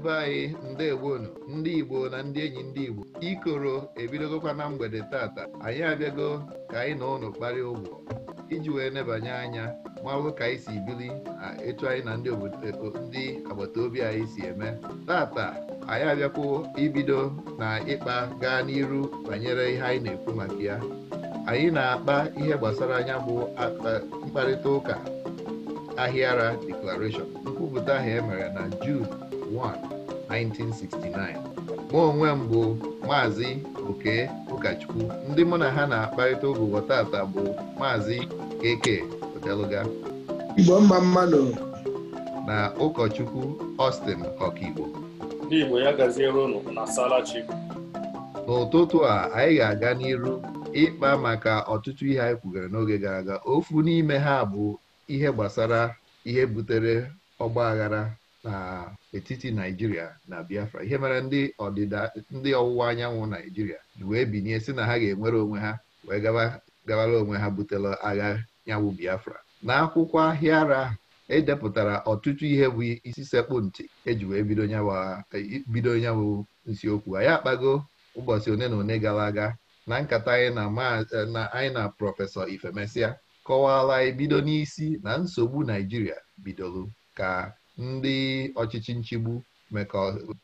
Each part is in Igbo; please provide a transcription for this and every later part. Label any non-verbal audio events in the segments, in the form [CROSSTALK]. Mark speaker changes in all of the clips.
Speaker 1: ebe anyị ndewonu ndị Igbo na ndị enyi ndị Igbo ikoro ebidogokwa na mgbede tata anyị abịago ka anyị na ụlọ kparịa ụgwọ iji wee nebanye anya mmalụ ka anyị si bili etu anyị na e, ndị agbata obi anyị si eme tata anyị abịakwo ibido na ịkpa gaa n'iru banyere ihe anyị na-ekwu maka ya anyị na-akpa ihe gbasara anya bụ mkparịta ụka ahịara declaration nkwupụta ahụ emere na June 1, 1969 mụ onwe m bụ maazị oke ụkọchukwu ndị mụ na ha na-akparịta ụbụbọ tata bụ maazị keke odeluga
Speaker 2: igbo mma mmanụ
Speaker 1: na ụkọchukwu Austin ọkaigbo n'igbo ya na n'ụtụtụ a anyị ga-aga n'iru ịkpa maka ọtụtụ ihe anyị kwugara n'oge gara aga ofu n'ime ha bụ ihe gbasara ihe butere ọgba aghara n'etiti naijiria na biafra ihe mere ndị ọdịda ndị ọwụwa anyanwụ naijiria wee binye si na ha ga-enwere onwe ha wee gabara onwe ha butela agha nyanwụ biafra Na akwụkwọ ahịa ara edepụtara ọtụtụ ihe bụ isi sekpụ ntị eji wee bido nyanwụ e, nsiokwu anyị akpago ụbọchị one na one gara aga na nkata anyị na prọfesọ ifemesia kọwaala ebido bido n'isi na nsogbu naijiria bidoro ka ndị ọchịchị nchigbu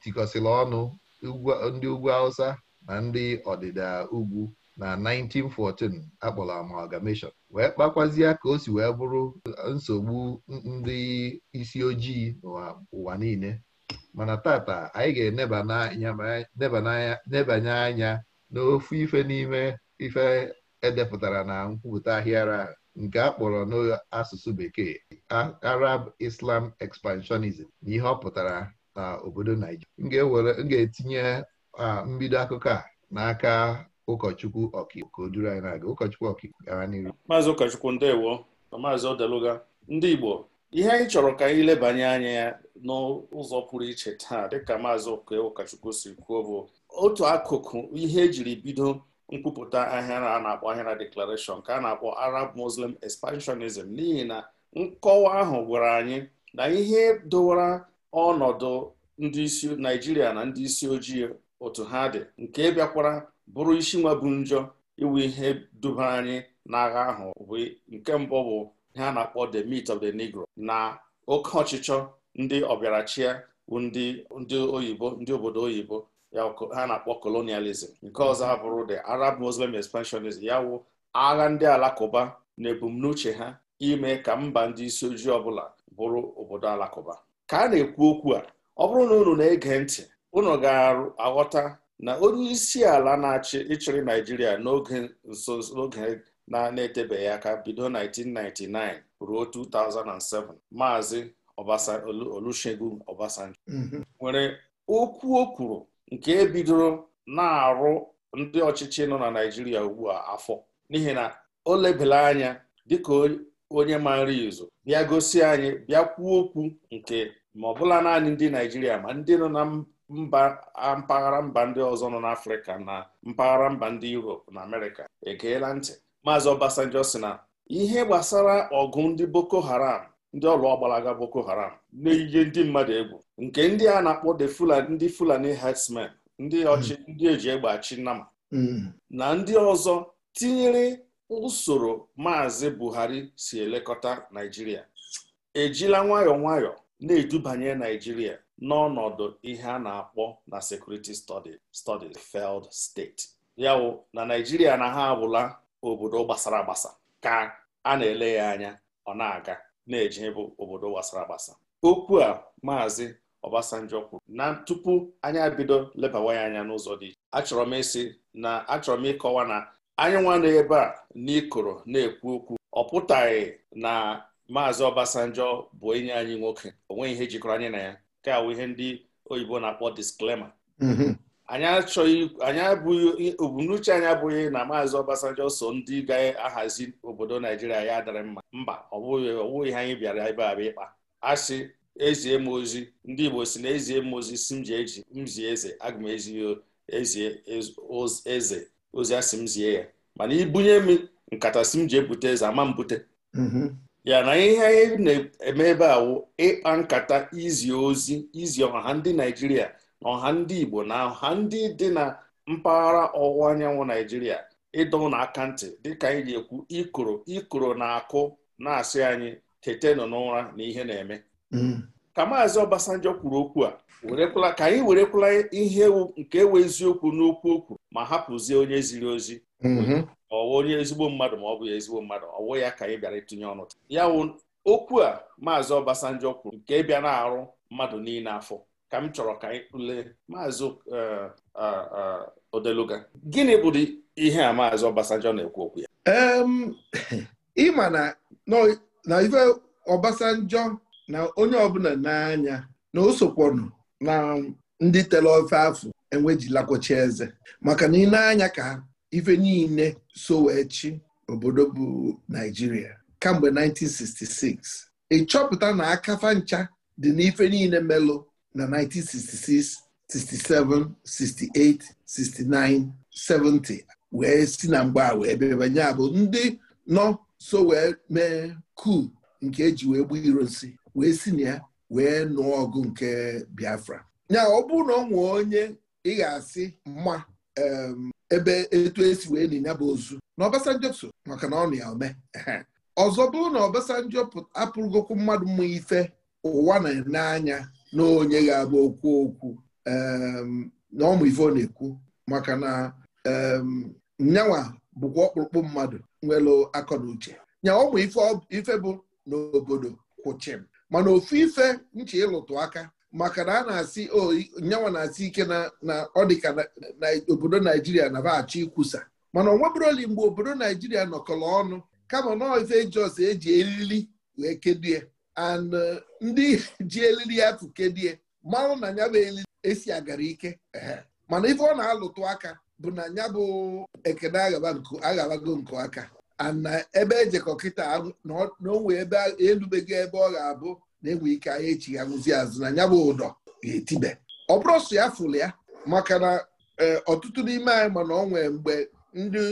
Speaker 1: tikọsịrị ọnụ ndị ugwu Hausa na ndị ọdịda ugwu na 1914 akpọrọ amalgamation wee kpakwazie ka o si wee bụrụ nsogbu ndị isi ojii ụwa niile mana tata anyị ga-enebanye anya n'ofu ife n'ime ife edepụtara na nkwupụta ahịara nke a kpọrọ n'asụsụ bekee Arab Islam expansionism na ihe ọ pụtara na obodo Naijiria m ga-etinye mbido akụkọ a n'aka ụkọchukwu ọkaiwu anyị na-aga ụkọchukwu ọkaiwu gara n'iru
Speaker 3: maazị ụkọchukwu ndewo na maazị odeluga ndị Igbo ihe anyị chọrọ ka anyị lebanye anya ya n'ụzọ pụrụ iche taa dịka maazị ụkọchukwu si kwuo bụ otu akụkụ ihe ejiri bido nkwupụta ahịa a na-akpọ ahịara declaration ka a na-akpọ arab muslim expansionism n'ihi na nkọwa ahụ gwara anyị na ihe dowara ọnọdụ ndị isi naijiria na ndị isi ojii otu ha dị nke bịakwara bụrụ isi nwa bụ njọ iwu ihe duba anyị n'agha ahụ bụ nke mbụ bụ ihe a na-akpọ the meat of the negro na oke ọchịchọ ndị ọbịarachia ndị oyibo ndị obodo oyibo ya ha na-akpọ colonialism nke ọzọ ha bụrụ the Arab Muslim expansionism ya wụ agha ndị alakụba na ebumnuche ha ime ka mba ndị isi ojii ọbụla bụrụ obodo alakụba ka a na-ekwu okwu a ọ bụrụ na unu na-ege ntị unu ga-aghọta na onye isi ala na-achị ịchịrị Naijiria n'oge nso n'oge na-etebeghị aka bido 1999 ruo 2007 maazị Olusegun Obasanjo mm-hmm. nwere okwu o kwuru nke bidoro na-arụ ndị ọchịchị nọ na Naijiria ugbu a afọ n'ihi na o lebela anya dịka onye ma nri izu bịa gosi anyị bịa kwuo okwu nke ma ọbụla naanị ndị Naijiria ma ndị nọ na mba mpaghara mba ndị ọzọ nọ n'Afrịka na mpaghara mba ndị Europe na Amerịka egeela ntị Maazị Obasanjo sị na ihe gbasara ọgụ ndị Boko Haram ndị ọlụ ọgbalaga Boko Haram na-eyiye ndị mmadụ egwu nke ndị a na-akpọ the Fulani ndị Fulani herdsmen ndị ọchị hmm. ndị eji egbe achị nnama hmm. na ndị ọzọ tinyere usoro maazị Buhari si elekọta Naijiria ejila nwayọọ nwayọọ na-edubanye Naijiria n'ọnọdụ ihe a na-akpọ na security studies feld steeti yawụ na Naijiria na ha abụla obodo gbasara agbasa ka a na-ele ya anya ọ na-aga na-eje bụ obodo gbasara agbasa okwu a maazị ọbasanjọ kwuru na tupu anyị abido lebawa ya anya n'ụzọ dị iche achọrọ m ịsị na achọrọ m ịkọwa na anyị nwana ebe a n'ikoro na-ekwu okwu ọ pụtaghị na maazị ọbasanjọ bụ enyi anyị nwoke onweghị ihe jikọrọ anyị na ya ka awụ ihe ndị oyibo na-akpọ disklema anyị achọghị anyị abụghị anyị abụghị na maazị Obasanjo so ndị ga-ahazi obodo Naijiria ya dara mma mba ọ bụghị anyị bịara ebe a ịkpa asị ezie m ozi ndị Igbo si na ezie m ozi si m ji eji m eze aga m ezi ezie eze ozi asị m zie ya mana ibunye m nkata si m ji ebute eze ama m bute mm-hmm. ya na ihe anyị na-eme ebe a wụ ịkpa nkata izi ozi izi ọha ndị Naijiria ọha ndị Igbo na ọha ndị dị na mpaghara ọwụwa anyanwụ Naijiria ịdọ ụnụ aka ntị dịka anyị ji-ekwu ikoro ikoro na-akụ na-asị anyị tetenụ n'ụra na ihe na-eme mm. ka maazị Obasanjo kwuru okwu a werekwala ka anyị werekwala ihe nke ewe eziokwu n'okwu okwu ma hapụzie onye ziri ozi mm-hmm. ọwụ onye ezigbo mmadụ ma ọ bụghị ezigbo mmadụ ọwụ ya ka anyị bịara itinye ọnụ ya wụ okwu a maazị Obasanjo kwuru nke bịa na-arụ mmadụ niile afọ ka m chọrọ ka anyị maazị e, Odeluga gịnị bụ ihe a maazị Obasanjo na-ekwu okwu ya
Speaker 2: ịma na ife Obasanjo na onye ọbụla n'anya na o na ndị tere ofe afọ enwejilakwachi eze maka na ịna-anya ka ife niile so wee chi obodo bụ Naijiria kamgbe 1966 ịchọpụta na akafa ncha dị n'ife niile melụ na 1966 67 68 69 70 wee si na mgbe a wee bebanye abụ ndị nọ so wee mee ku nke eji wee gbuo iro nsi wee si na ya wee nụọ ọgụ nke Biafra ya ọ bụrụ na ọ nwee onye ị ga-asị mma ebe etu esi wee na ya bụ ozu na Obasanjo so maka na ọ ya ome ọzọ bụrụ na Obasanjo apụrụgokwu mmadụ mma ife ụwa na-ene anya n'onye ga-abụ okwu okwu um, na ọmụ ife ọ na-ekwu maka na um, nyanwa bụkwa ọkpụrụkpụ mmadụ nwere akọ na uche ọmụ ife bụ n'obodo kwụchim mana ofu ife nche ịlụtụ aka maka na a na-asị nyanwa na-asị ike na ọ dịka obodo naijiria na bachi ikwusa mana ọ nwebụroli mgbe obodo naijiria nọkọrọ ọnụ kama nọọ ife jos eji eriri wee ya. and uh, ndị [LAUGHS] ji elili ya tụkedie mmanụ na ya bụ elili esi agara ike mana ife ọ na-alụtụ aka bụ na ya bụ ekene aghabago nke aka ana uh, ebe ejekọ kịta na onwe ebe elubego ebe ọ ga-abụ na-enwe ike ahịa echi ya azụ na ya bụ ụdọ ga-etibe ọ bụrụ sụ ya fụlụ ya maka na e, ọtụtụ n'ime anyị mana ọ nwee mgbe ndị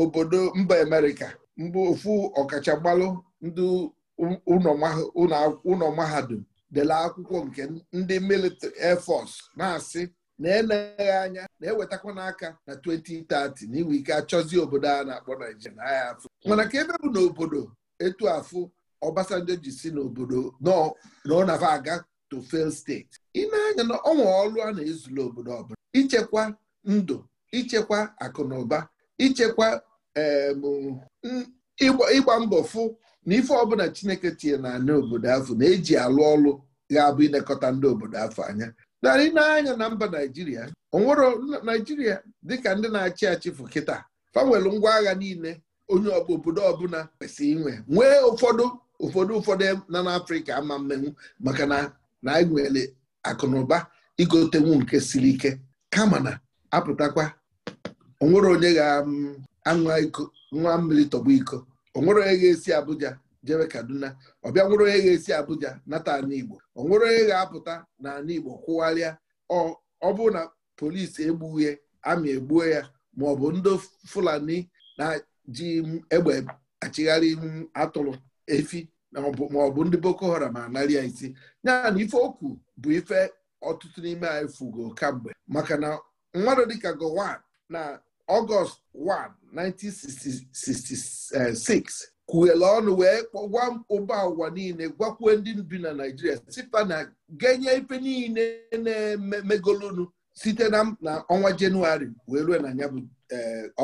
Speaker 2: obodo mba Amerịka mgbe ofu ọkachammalụ ndị ụlọ mahadum dela akwụkwọ nke ndị military air na-asị na-eneghị anya na-ewetakwa n'aka na 2030 na ike achọzi obodo a na-akpọ Naijiria na ya afụ mana ka ebe bụ n'obodo etu afụ Obasanjo ji si n'obodo nọ ọ na aga to fail steeti ị na-anya na ọnwa ọlụ a na-ezula obodo ọbụla ichekwa ndụ ichekwa akụnụba ụba ichekwa ịgba mbọ fụ na ife ọbụla Chineke tinye na ana obodo afọ na-eji alụ ọlụ ga-abụ ilekọta ndị obodo afọ anya narị n'anya na mba Naijiria onwere Naijiria dịka ndị na-achị achị fụ kịta fanwelu ngwa agha niile onye obodo ọbụla kwesịrị inwe nwee ụfọdụ ụfọdụ ụfọdụ na n'Afrịka ama mmenwu maka na na anyị e nwere ụba igotenwu nke siri ike kama na apụtakwa onwere onye ga nwa mmiri tọgbu iko ọ nwere onye ga-esi Abuja jebe Kaduna ọ bịa nwere onye ga-esi Abuja nata ala Igbo ọ nwere onye ga-apụta na ala Igbo kwụgharịa ọ bụrụ na polisi egbughe amị egbuo ya ma ọ bụ ndị Fulani na-ji egbe achịgharị atụrụ efi ma ọ bụ ndị Boko Haram anarị ya isi ya na ife okwu bụ ife ọtụtụ n'ime anyị fugo kamgbe maka na mmadụ dịka Gowan na ọgọst 1 1966 kwughele ọnụ wee gwa ụba ụwa niile gwakwuo ndị bi na naijiria site na genye ife niile na-emegolunu site na ọnwa jenụwarị wee ruo na ya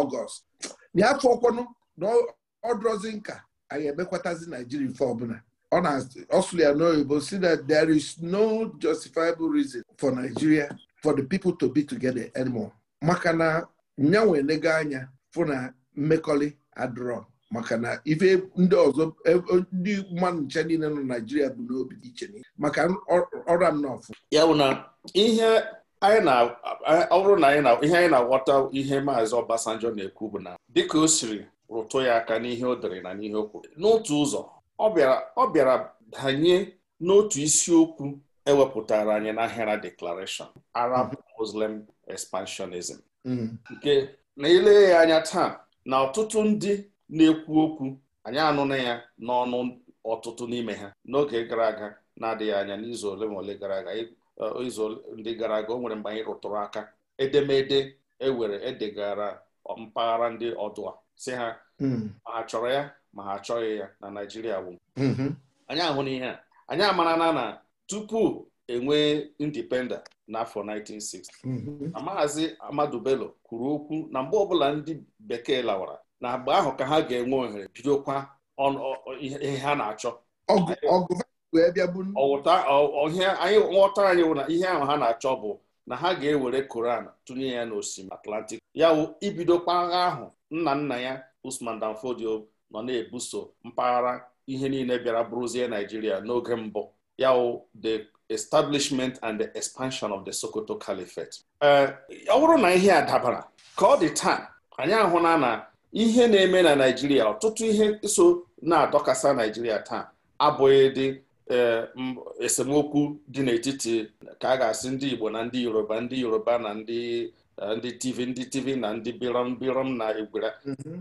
Speaker 2: ọgọst eh, n'afọ ọkwanụ na ọdụrọzi nka anyị emekwatazi naijiria ife ọbụla ọsụlụ ya n'oyibo si na there is no justifiable reason for Nigeria for the people to be together anymore maka na nya nwee lego anya fụ na mmekọrị adrọ maka na ife ndị ọzọ e, e, ndị mmadụ ncha niile nọ Naijiria bụ n'obi dị iche maka ọrụ m n'ọfụ
Speaker 3: ya bụ na ihe na anyị na-aghọta ihe maazị Obasanjo na-ekwu bụ na dịka o siri rụtụ ya aka n'ihe o dere na n'ihe o kwuru n'otu ụzọ ọ bịara danye n'otu isiokwu ewepụtara anyị na Ahera Declaration Arab Muslim Expansionism nke na ile ya anya taa na ọtụtụ ndị na-ekwu okwu anyị anụna ya n'ọnụ ọtụtụ n'ime ha n'oge gara aga na-adịghị anya n'izu ole ma ole gara aga uh, izu ndị gara aga o nwere mgbe anyị rụtụrụ aka edemede ewere edegara mpaghara ndị ọdụ a si ha hmm. ma ha chọrọ ya ma ha achọghị ya na Naijiria bụ mm-hmm. anyị ahụ n'ihe a anyị amarana na tupu enwee indipenda n'afọ 1960 mm-hmm. na maazị Amadu Bello kwuru okwu na mgbe ọbụla ndị bekee lawara na agba ahụ ka ha ga-enwe ohere bidokwa ihe ha na-achọ anyị nghọtara anyị na ihe ahụ ha na-achọ bụ na ha ga-ewere Koran tụnye ya n'osimiri Atlantik, ya wụ ibidokwa agha ahụ nna nna ya Usman Danfodio Fodio nọ na-ebuso mpaghara ihe niile bịara bụrụzie Naijiria n'oge mbụ yaw the establishment and the expansion of the Sokoto Caliphate. ọ eh, bụrụ na ihe a dabara ka ọ dị taa anyị ahụla na ihe na-eme na Naịjirịa ọtụtụ ihe so na-adọkasa Naịjirịa taa abụghị dị eh, esemokwu dị n'etiti ka a ga-asị ndị Igbo na ndị Yoruba ndị Yoruba na ndị TV eh, ndị TV na ndị birom birom na egwera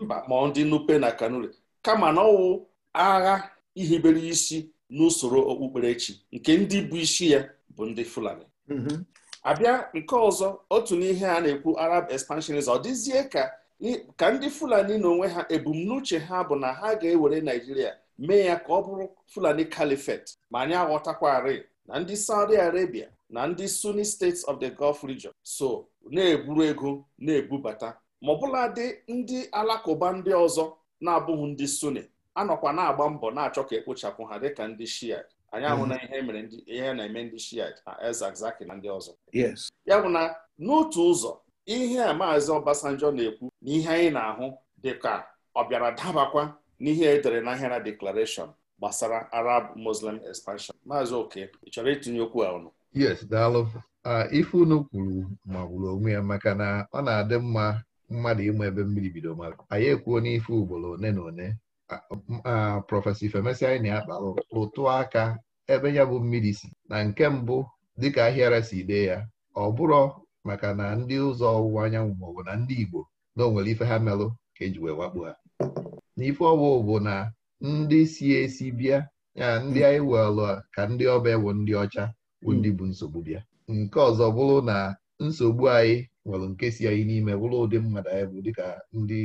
Speaker 3: mba mhm. ma ndị Nupe na Kanuri kama na ọwụ agha ihibere isi n'usoro okpukperechi nke ndị bụ isi ya bụ ndị Fulani mm-hmm. abịa nke ọzọ otu n'ihe a na-ekwu Arab expansionism ọ dịzie ka ndị Fulani na onwe ha ebumnuche ha bụ na ha ga-ewere Naijiria mee ya ka ọ bụrụ Fulani Caliphate ma anyị aghọtakwarị na ndị Saudi Arabia na ndị Sunni States of the Gulf region so na-eburu ego na-ebubata ma ọbụladị ndị alakụba ndị ọzọ na-abụghị ndị Sunni anọkwa na-agba mbọ na-achọ ka ekpochapụ ha dịka ndị shia anyị ahụ mhm. ihe mere ihe na-eme ndị shia na ezazaki na ndị ọzọ ya bụ na n'otu ụzọ ihe a maazị Obasanjo na-ekwu na ihe anyị na-ahụ dịka ọ bịara dabakwa n'ihe edere na ahịara deklarashọn gbasara Arab Muslim expansion maazị oke ị chọrọ itinye okwu a ọnụ
Speaker 1: yes daalụ ife unu kwuru magburu onwe ya maka na ọ na-adị mma mmadụ ịma ebe mmiri bido mara anyị ekwuo n'ife ugboro one na one Ah, ah, prọfesọ Ifemesi anyị na-akpalụ ụtụ aka ebe ya bụ mmiri si na nke mbụ dịka ahịara si dee ya ọ bụrọ maka na ndị ụzọ ọwụwa anyanwụ maọbụ na ndị Igbo na onwere nwere ife ha merụ ka eji wee wakpo ha n'ife ọwụ bụ na ndị si esi bịa ya ndị anyị welụ ka ndị ọba ewu ndị ọcha bụ ndị bụ nsogbu bịa nke ọzọ bụrụ na nsogbu anyị nwere nke si anyị n'ime bụrụ ụdị mmadụ anyị bụ dịka ndị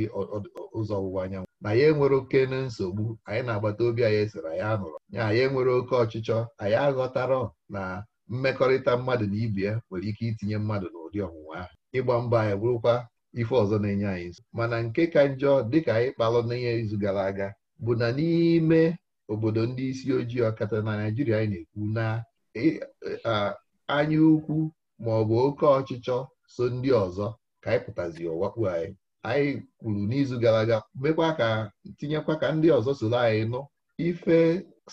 Speaker 1: ụzọ ọwụwa anyanwụ na ya enwere oke na nsogbu anyị na-agbata obi anyị sịrị anyị anụrụ ya anyị enwere oke ọchịchọ anyị aghọtara na mmekọrịta mmadụ na ibe ya nwere ike itinye mmadụ n'ụdị ọnwụnwa ahụ ịgba mbọ anyị bụrụkwa ife ọzọ na-enye anyị nso mana nke ka njọ dịka anyị kpalụ n'ihe izu gara aga bụ na n'ime obodo ndị isi ojii ọkata na naijiria anyị na-ekwu na e, anya ukwu ma ọ bụ oke ọchịchọ so ndị ọzọ ka anyị pụtazi ọwakpu anyị anyị kwuru n'izu gara aga mekwa ka tinyekwa ka ndị ọzọ soro anyị nụ ife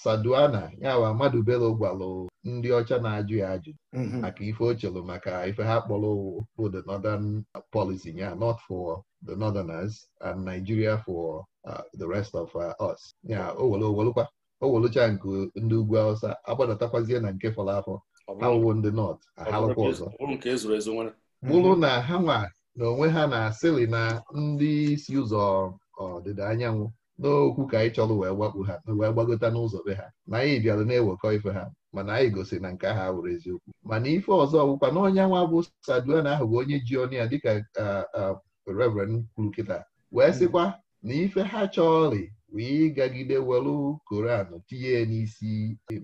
Speaker 1: saduana yawa mmadụ bere gwalụ ndị ọcha na-ajụ ya ajụ mhm. maka ife o chere maka ife ha kpọrọ bụ the northern policy ya not for the northerners and Nigeria for uh, the rest of uh, us ya o were nke ndị ugwu awụsa agbadatakwazie na nke fọrọ afọ awụwo ndị nọt ahalụkwa ọzọ bụrụ na ha nwa na onwe ha na asịlị na ndị isi ụzọ ọdịda anyanwụ n'okwu ka anyị chọrọ wee gbakpu ha wee gbagota n'ụzọ be ha na anyị bịara na-ewekọ ife ha mana anyị gosiri na nke ahụ awụrụ eziokwu mana ife ọzọ ọgwụkwa na onye nwa bụ saduan ahụ bụ onye ji ọnụ ya dịka reverend kwuru kịta wee sịkwa na ife ha chọrị wee gagide welu koran tinye n'isi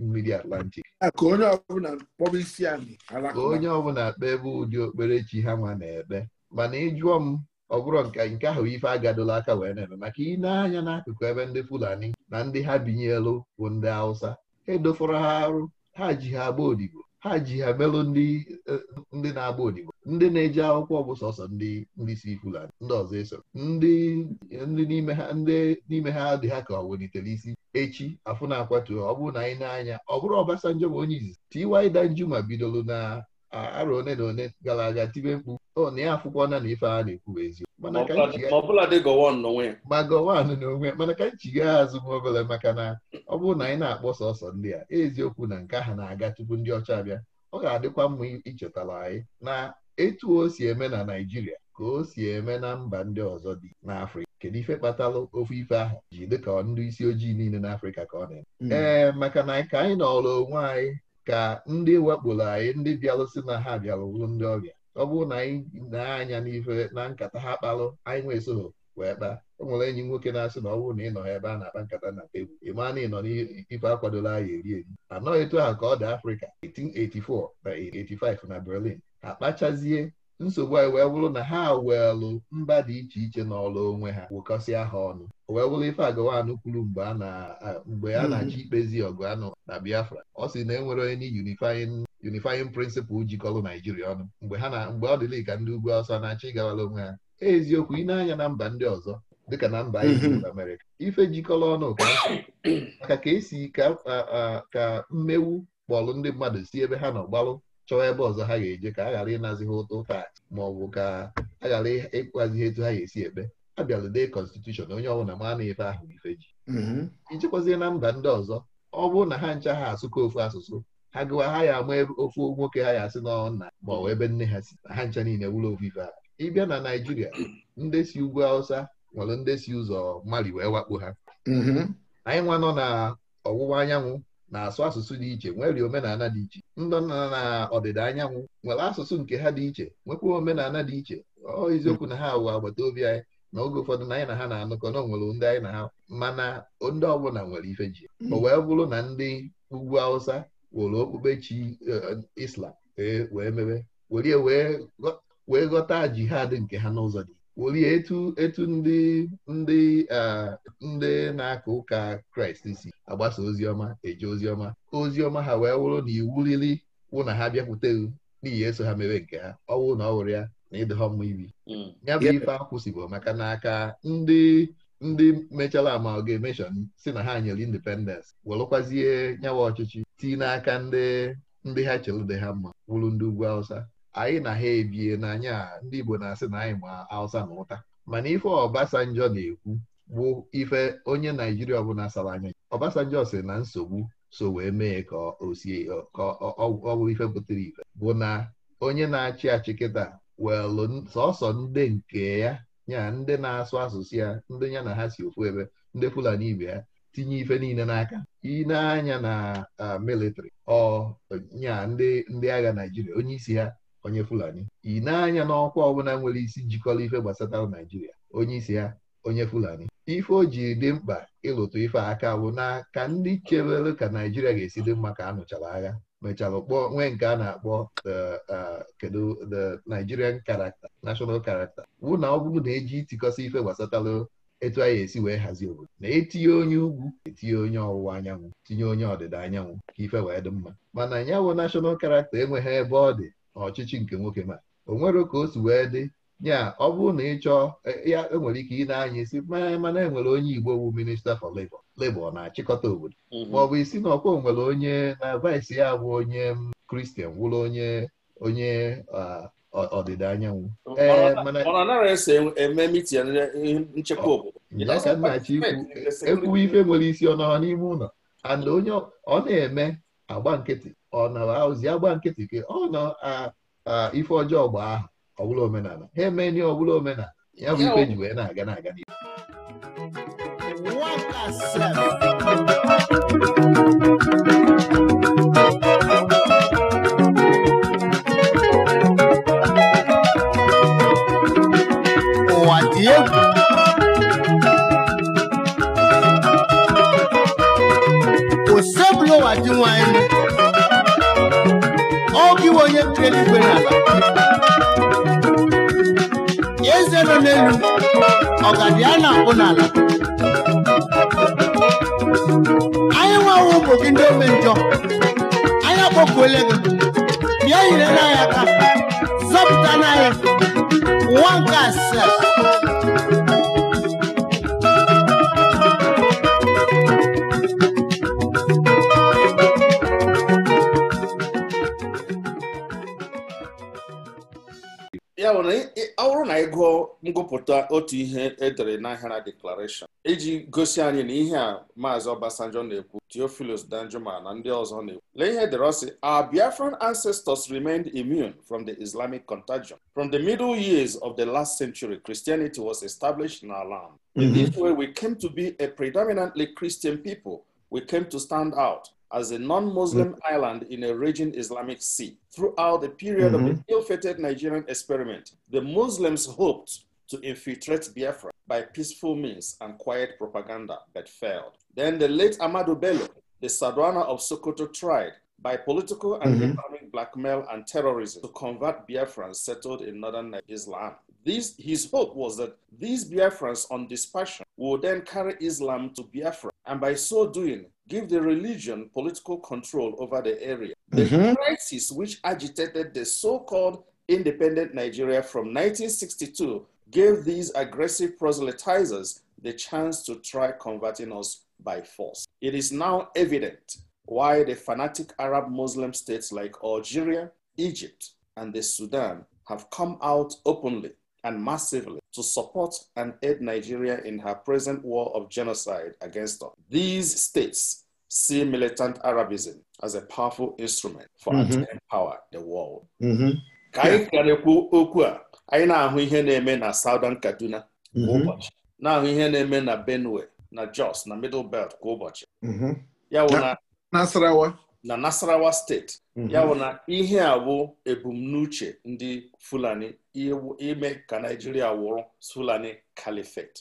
Speaker 1: mmiri atlantik
Speaker 2: ka onye
Speaker 1: ọbụla kpebe ụdị okperechi ha nwa na-ekpe mana ịjụọ m ọ bụrụ nke ahụ ife agadola aka wee na-eme maka ị na-anya n'akụkụ ebe ndị Fulani na ndị ha binyelu bụ ndị Hausa edofọrọ ha arụ ha ji ha agba odibo ha ji ha melụ ndị eh, na-agba odibo ndị na-eji akwụkwọ bụ sọsọ ndị si Fulani ndị ọzọ eso ndị n'ime ha dị ha ka ọ welitere isi echi afụna na akwatu ọ bụrụ na anyị na-anya ọ bụrụ Obasanjo bụ onye izizi Tiwa ma bidoro na arọ one na one gara aga tibe mkpu na ya afụkwọna na ife a na-ekwu eziokwu mana ka anyị chigha azụ m obere maka na ọ bụrụ na anyị na-akpọ sọsọ ndị a eziokwu na nke ahụ na-aga tupu ndị ọcha bịa ọ ga-adịkwa mma ichetara anyị na etu o si eme na Naijiria ka o si eme na mba ndị ọzọ dị n'Afrịka kedu ife kpatara ofe ife ahụ ji dịka ndị isi ojii niile n'Afrịka ka ọ na-eme hmm. ee maka na ka anyị nọrọ onwe anyị ka ndị wakporo anyị ndị bịalụsị na ha bịara wuru ndị ọbịa ọ bụrụ na anyị na-anya n'ife na nkata ha kpalụ anyị nwee soho wee kpaa o nwere enyi nwoke na-asị na ọ bụrụ na ị nọ ebe a na-akpa nkata na tebụl ị maa na ị nọ n'ife akwadola anyị eri eri anọghị etu ahụ ka ọ dị Afrịka 1884 na 1885 na Berlin akpachazie nsogbu anyị wee bụrụ na ha welụ mba dị iche iche n'ọlụ onwe ha wụkọsịa ha ọnụ wee bụrụ ife agawanụ kwuru mgbe a hmm. na-achọ ikpezi ọgụ anụ na Biafra ọ sị na enwere onye unifying unifying principle jikọrọ Naijiria ọnụ mgbe ha na mgbe ọ dịla ka ndị ugwu ọsọ na-achọ ịgawara onwe ha eziokwu ị na-anya na mba ndị ọzọ dịka na mba hmm. Amerịka ife jikọrọ ọnụ maka ka esi ka mmewu kpọlụ ndị mmadụ si ebe ha nọ gbalụ chọọ ebe ọzọ ha ga-eje ka a ghara ịnazi ha ụtụ taa ma ọ bụ ka a ghara ịkwazi etu ha ga-esi ekpe a bịalụde konstitushọn onye ọbụla ma na ife ahụ ife ji ichekwazie na mba ndị ọzọ ọ bụrụ na ha ncha ha asụkọ ofu asụsụ ha gụwa ha ya ama ofu nwoke ha ya asị n'ọnụ nna ma ọ bụ ebe nne ha si ha ncha niile wụrụ ofu ife ahụ ịbịa na Naịjirịa ndị si ugwu Awụsa nwere ndị si ụzọ mmali wee wakpo ha anyị nwa nọ na ọwụwa anyanwụ na-asụ asụsụ dị iche nwere omenala dị iche ndị nna na ọdịda anyanwụ nwere asụsụ nke ha dị iche nwekwa omenala dị iche ọ eziokwu na ha wụ agbata obi anyị na oge ụfọdụ na anyị na ha na-anụkọ na onwere ndị anyị na ha mana ndị ọbụla nwere ife ji mm. o wee bụrụ na ndị ugwu Hausa were okpukpe chi e, Islam e, wee mebe were wee ghọta jihad nke ha n'ụzọ dị werie etu etu ndị ndị ndị na-aka ụka Kraịst si agbasa oziọma eje oziọma oziọma ha wee wụrụ na iwu riri wụ na ha bịakwuteghị n'ihi eso ha mere nke ha ọ wụrụ na ọ wụrụ ya na ịdọha mma ibi hmm. ya bụ ife akwụsịbụ maka na aka ndị ndị mechara amalgamation si na ha nyere independence welụkwazie nyawa ọchịchị tii n'aka ndị ndị ha chere dị ha mma wụrụ ndị ugwu Hausa anyị na ha ebie n'anya ndị Igbo na-asị na anyị ma Hausa na ụta mana ife ọbasanjọ na-ekwu bụ ife onye Naijiria ọbụla sara anya Obasanjo sị na nsogbu so wee mee ka o sie ka ọ bụrụ ife pụtara ife bụ na onye na-achị achị kịta welụ sọsọ ndị nke ya ya ndị na-asụ asụsụ ya ndị ya na ha si ofu ebe ndị Fulani ibe ya tinye ife niile n'aka ineanya na militrị ọ ndị agha Naịjirịa onye isi ha onye Fulani ineanya n'ọkwa ọbụla nwere isi njikọrọ ife gbasatara Naịjirịa onye isi ha onye Fulani ife o jiri dị mkpa ịlụtụ ife aka bụ ka ndị chebere ka Naijiria ga-esi dị mma ka a nụchara agha mechara kpọọ nwee nke a na-akpọ uh, kedu the Nigerian character national character wụ na ọ bụrụ na eji itikọsa ife gbasatara etu anyị esi wee hazie obodo na etinye onye ugwu etinye onye ọwụwa anyanwụ tinye onye ọdịda anyanwụ ka ife wee dị mma mana ya bụ national character enweghị ebe ọ dị n'ọchịchị nke nwoke ma o nwere ka o si wee dị ya ọ bụrụ na ị chọọ e, ya enwere ike ị na-anya isi mana enwere onye Igbo bụ minista for lebo lebo na-achịkọta obodo mhm. ma ọ bụ isi na ọkwa nwere onye na vice ya bụ onye kristian wụrụ onye onye ọdịda anyanwụ e, e, ekwuwe ife nwere isi ọ n'ime ụlọ and onye ọ na-eme agba nkịtị ọ nara ozi agba nkịtị ka ọ nọ ife ọjọọ gba ahụ ọbụla omenala ha eme ihe ọbụla omenala ya bụ ikpe ji wee na-aga na-aga ụwa dị egwu osebụla ụwa dị nwanyị oge iwe onye kere igwe n'ala nọ n'elu ọgadi a na-akpụ n'ala anyị nwewe ụmụ gị ndị ome njọ anyị akpọkuole gị bịa nyere n'anya aka zọpụta n'anya nwa nke asịa
Speaker 3: anyị gụọ ngụpụta otu ihe edere n'ahịara deklaration iji gosi anyị na ihe a maazị Obasanjo na-ekwu Theophilus Danjuma na ndị ọzọ na-ekwu lee ihe e ọsị our Biafran ancestors remained immune from the Islamic contagion from the middle years of the last century Christianity was established in our land in mm-hmm. this way we came to be a predominantly Christian people we came to stand out as a non-Muslim mm island in a region Islamic Sea. Throughout the period mm -hmm. of the mm-hmm. ill-fated Nigerian experiment, the Muslims hoped to infiltrate Biafra by peaceful means and quiet propaganda, but failed. Then the late Amadou Bello, the Sadwana of Sokoto, tried by political and mm blackmail and terrorism to convert Biafrans settled in northern Islam. his hope was that these Biafrans on dispersion would then carry Islam to Biafra, and by so doing, give the religion political control over the area. The mm-hmm. crisis which agitated the so called independent Nigeria from 1962 gave these aggressive proselytizers the chance to try converting us by force. It is now evident why the fanatic Arab Muslim states like Algeria, Egypt, and the Sudan have come out openly and massively to support and aid Nigeria in her present war of genocide against us. These states see militant Arabism as a powerful instrument for us mm -hmm. empower the world. Mm-hmm. Ka anyị karịkwuo okwu a anyị na-ahụ ihe na-eme na Southern Kaduna kwa mm-hmm. ụbọchị na-ahụ ihe na-eme na Benue na Jos na Middle Belt kwa ụbọchị mm-hmm. ya wụ na Nasarawa na Nasarawa steeti mhm. ya bụ na ihe a bụ ebumnuche ndị Fulani ime ka Naijiria wụrụ Fulani Caliphate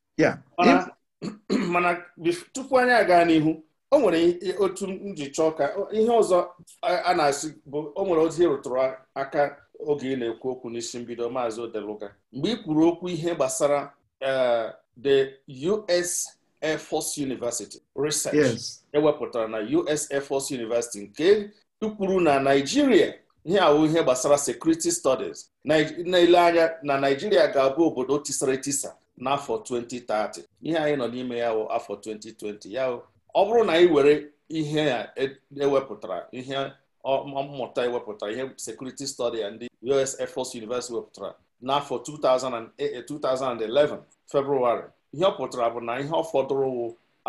Speaker 3: mana [CLEARS THROAT] tupu anyị aga n'ihu o nwere otu nji chọọ ka ihe ọzọ a na-asị bụ o nwere ozi e rụtụrụ aka oge ị na-ekwu okwu n'isi mbido maazị Odeluka. mgbe ị kwuru okwu ihe gbasara eh, the US Air Force University research ewepụtara e na US Air Force University nke tukwuru na Naijiria ihe awụ ihe gbasara security studies na anya na Naijiria ga-abụ obodo tisara tisa n'afọ 2030 ihe anyị nọ n'ime ya wụ afọ 2020 ya ọ bụrụ na anyị were ihe a ewepụtara e ihe mmụta ewepụtara ihe security studies ndị US Air Force University wepụtara n'afọ 2011 eh, eh, February ihe ọ pụtara bụ na ihe ọ fọdụrụ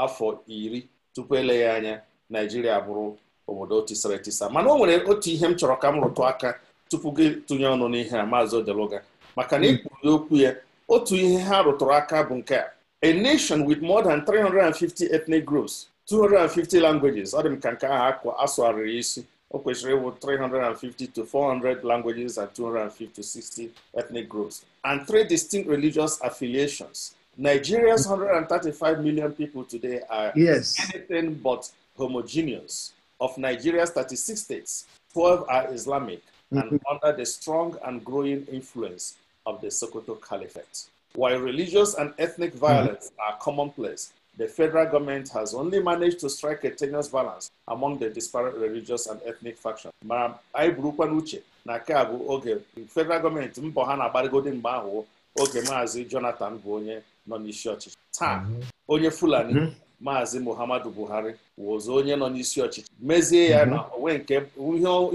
Speaker 3: afọ iri tupu eleghị anya naijiria bụrụ obodo tisara etisa mana o nwere otu ihe m chọrọ ka m rụtụ aka tupu gị tụnye ọnụ n'ihe a maazị Odeluga maka na hmm. ikwuru okwu ya otu ihe ha rụtụrụ aka bụ nke a a nation with more than 350 ethnic groups 250 languages ọ dị m ka nke ahụ asụgharịrị isi o kwesịrị ịwụ 350 to 400 languages and 250 to 60 ethnic groups and three distinct religious affiliations Nigeria's 135 million people today are yes. anything but homogeneous. Of Nigeria's 36 states, 12 are Islamic mm-hmm. and under the strong and growing influence of the Sokoto Caliphate. While religious and ethnic mm-hmm. violence mm -hmm. are commonplace, the federal government has only managed to strike a tenuous balance among the disparate religious and ethnic factions. Ma anyị burukwa n'uche na keabu oge federal gọọmenti mbọ ha na-agbarịgodi mgbe oge Maazị Jonathan bụ onye nọ n'isi ọchịchị taa onye Fulani maazị Muhammadu Buhari wụzụ onye nọ n'isi ọchịchị mezie ya na onwe nke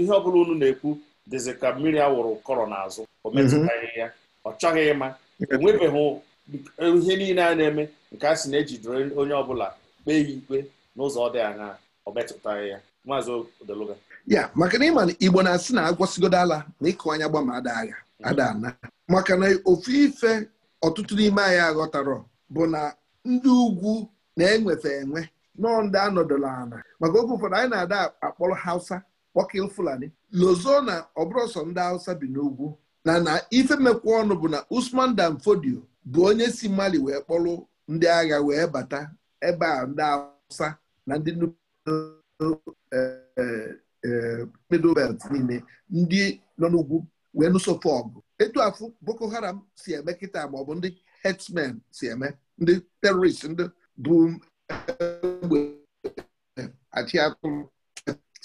Speaker 3: ihe ọbụla unu na-ekwu dịzị ka mmiri wụrụ kọrọ n'azụ o metụtaghị ya ọ chọghị ịma enwebeghị ihe niile a na-eme nke a sị na ejidere onye ọbụla kpee ya ikpe n'ụzọ dị anya ọ metụtaghị ya maazị Odeluga
Speaker 2: ya maka na ịma na Igbo na-asị na agwọsigodo ala na ịkụ anya gbama ada agha ada ana maka na ofu ife ọtụtụ n'ime anyị aghọtarọ bụ na ndị ugwu na-enwefe enwe nọọ ndị anọdụla ala maka oge ụfọdụ anyị na-ada akpọrọ hausa kpọkil fulani lozo na ọbụrọsọ ndị hausa bi n'ugwu na na ife mekwa ọnụ bụ na usman dan fodio bụ onye si mali wee kpọrọ ndị agha wee bata ebe a ndị hausa na ndị eh, eh, eh, niile ndị nọ n'ugwu wee nụsofe etu afụ Boko Haram si eme kịta ma ndị herdsmen si eme ndị terorist ndị bụ egbe achị atụrụ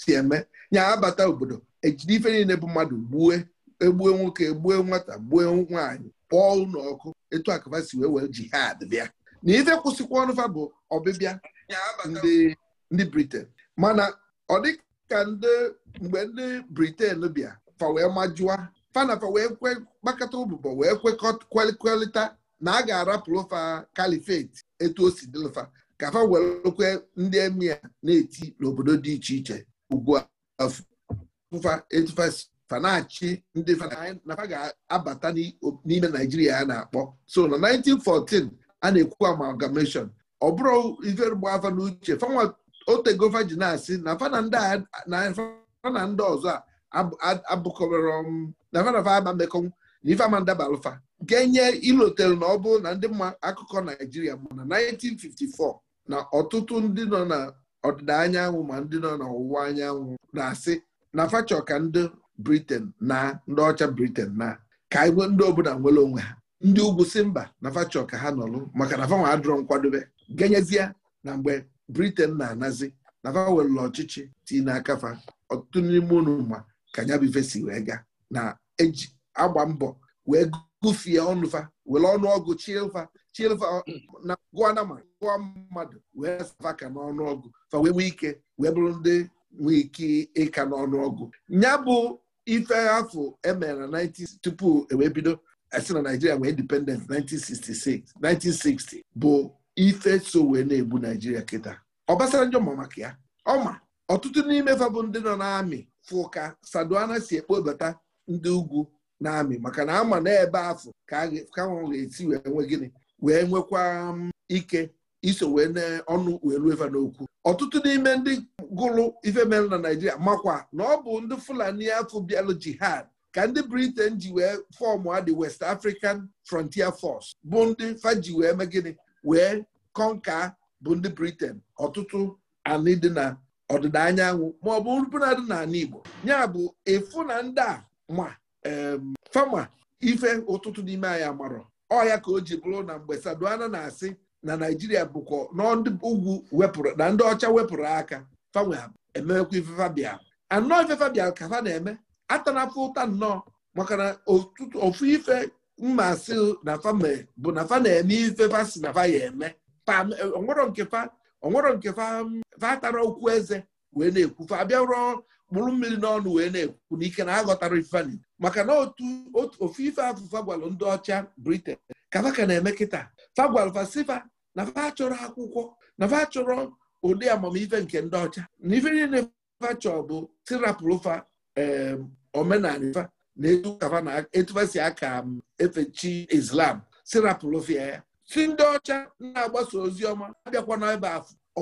Speaker 2: si eme ya abata obodo ejide ife niile bụ mmadụ gbue egbue nwoke gbue nwata gbue nwaanyị pụọ ụlọ ọkụ etu akaba si wee wee jihad bịa na ife kwụsịkwa ọnụfa ọbịbịa ndị briten mana ọ dịka ndị mgbe ndị briten bịa fa fanafa wee gbakọta ụbụbọ wee kwekọkwelịta na a ga-arapụrụ fa kalifeti etu o si dịlụfa ka fa welekwe ndị emia na-eti n'obodo dị iche iche ugbu afụfa fa na-achị ndị na ga-abata n'ime naijiria a na-akpọ so na 1914 a na-ekwu amalgamation ọ bụrụ ife afa n'uche ji na-asị na fa ndị ọzọ a abụkọrọ davadavamande konwu na ifeamandabalụfa ga-enye ilotel na ọ bụrụ na ndị mma akụkọ naijiria ma na 1954 na ọtụtụ ndị nọ na ọdịda anyanwụ ma ndị nọ na ọwụwa anyanwụ na-asị na fachọ ka ndị briten na ndị ọcha briten na ka ndị obodo nwere onwe ha ndị ugwu si mba na fachọ ka ha nọlụ maka na fanwa adụrọ nkwadobe genyezie na mgbe briten na-anazi na fa ọchịchị ti n'aka fa ọtụtụ n'ime unu ma ka nya bụ ife si wee gaa na eji agba mbọ wee gụfie ọnụfa were ọnụọgụ chilva chilva na gụọ nama gụọ mmadụ wee aka n'ọnụọgụ fa wee nwee ike wee bụrụ ndị nwee ike ịka n'ọnụọgụ ya bụ ife afọ emere na 19 tupu ewebido esi na Naijiria wee independent 1966 1960 bụ ife so wee na-egbu Naijiria kịta Obasanjo ma maka ya ọma ọtụtụ n'ime fa bụ ndị nọ n'amị fụka Saduana si ekpobata ndị ugwu na-amị maka na ama na ebe afọ ka ga-esi wee nwe gịnị wee nwekwa um, ike iso wee n'ọnụ wee ruo eva n'okwu ọtụtụ n'ime ndị gụrụ ife mere na Naijiria makwa na ọ bụ ndị Fulani afọ bịalụ jihad ka ndị Britain ji wee fọọmụ adị West African Frontier Force bụ ndị faji wee gịnị wee kọnka bụ ndị Britain ọtụtụ anị dị na ọdịda anyanwụ ma ọ bụ dị na Igbo ya bụ ịfụ na ndị a ma fama ife ụtụtụ n'ime anyị marọ ọya ka o ji bụrụ na mgbe Saduana na-asị na Naijiria bụkwa ugwu wepụrụ na ndị ọcha wepụrụ aka fanwe ememekwa ife fabia anọ ife fabia ka fa na-eme atanafụ ụta nnọọ maka na ofu ife mmasị na fame bụ na fa na-eme ife fa si na fa ya eme onwero nke fa atara okwu eze wee na-ekwu fa abịa rụọ mkpụrụ mmiri n'ọnụ wee na-ekwu n'ike na aghọtara ifeanyi maka na otu ofu ife afụfa gwalụ ndị ọcha briten Kabaka na-eme kịta fagwalụ fasifa na fa chọrọ akwụkwọ na fa chọrọ ụdị amamife nke ndị ọcha na ife niile fachọ bụ tirapụlụfa omenala fa na etufa si aka efechi islam tirapụlụfia ya si ndị ọcha na-agbasa ozi ọma abịakwana ebe afọ o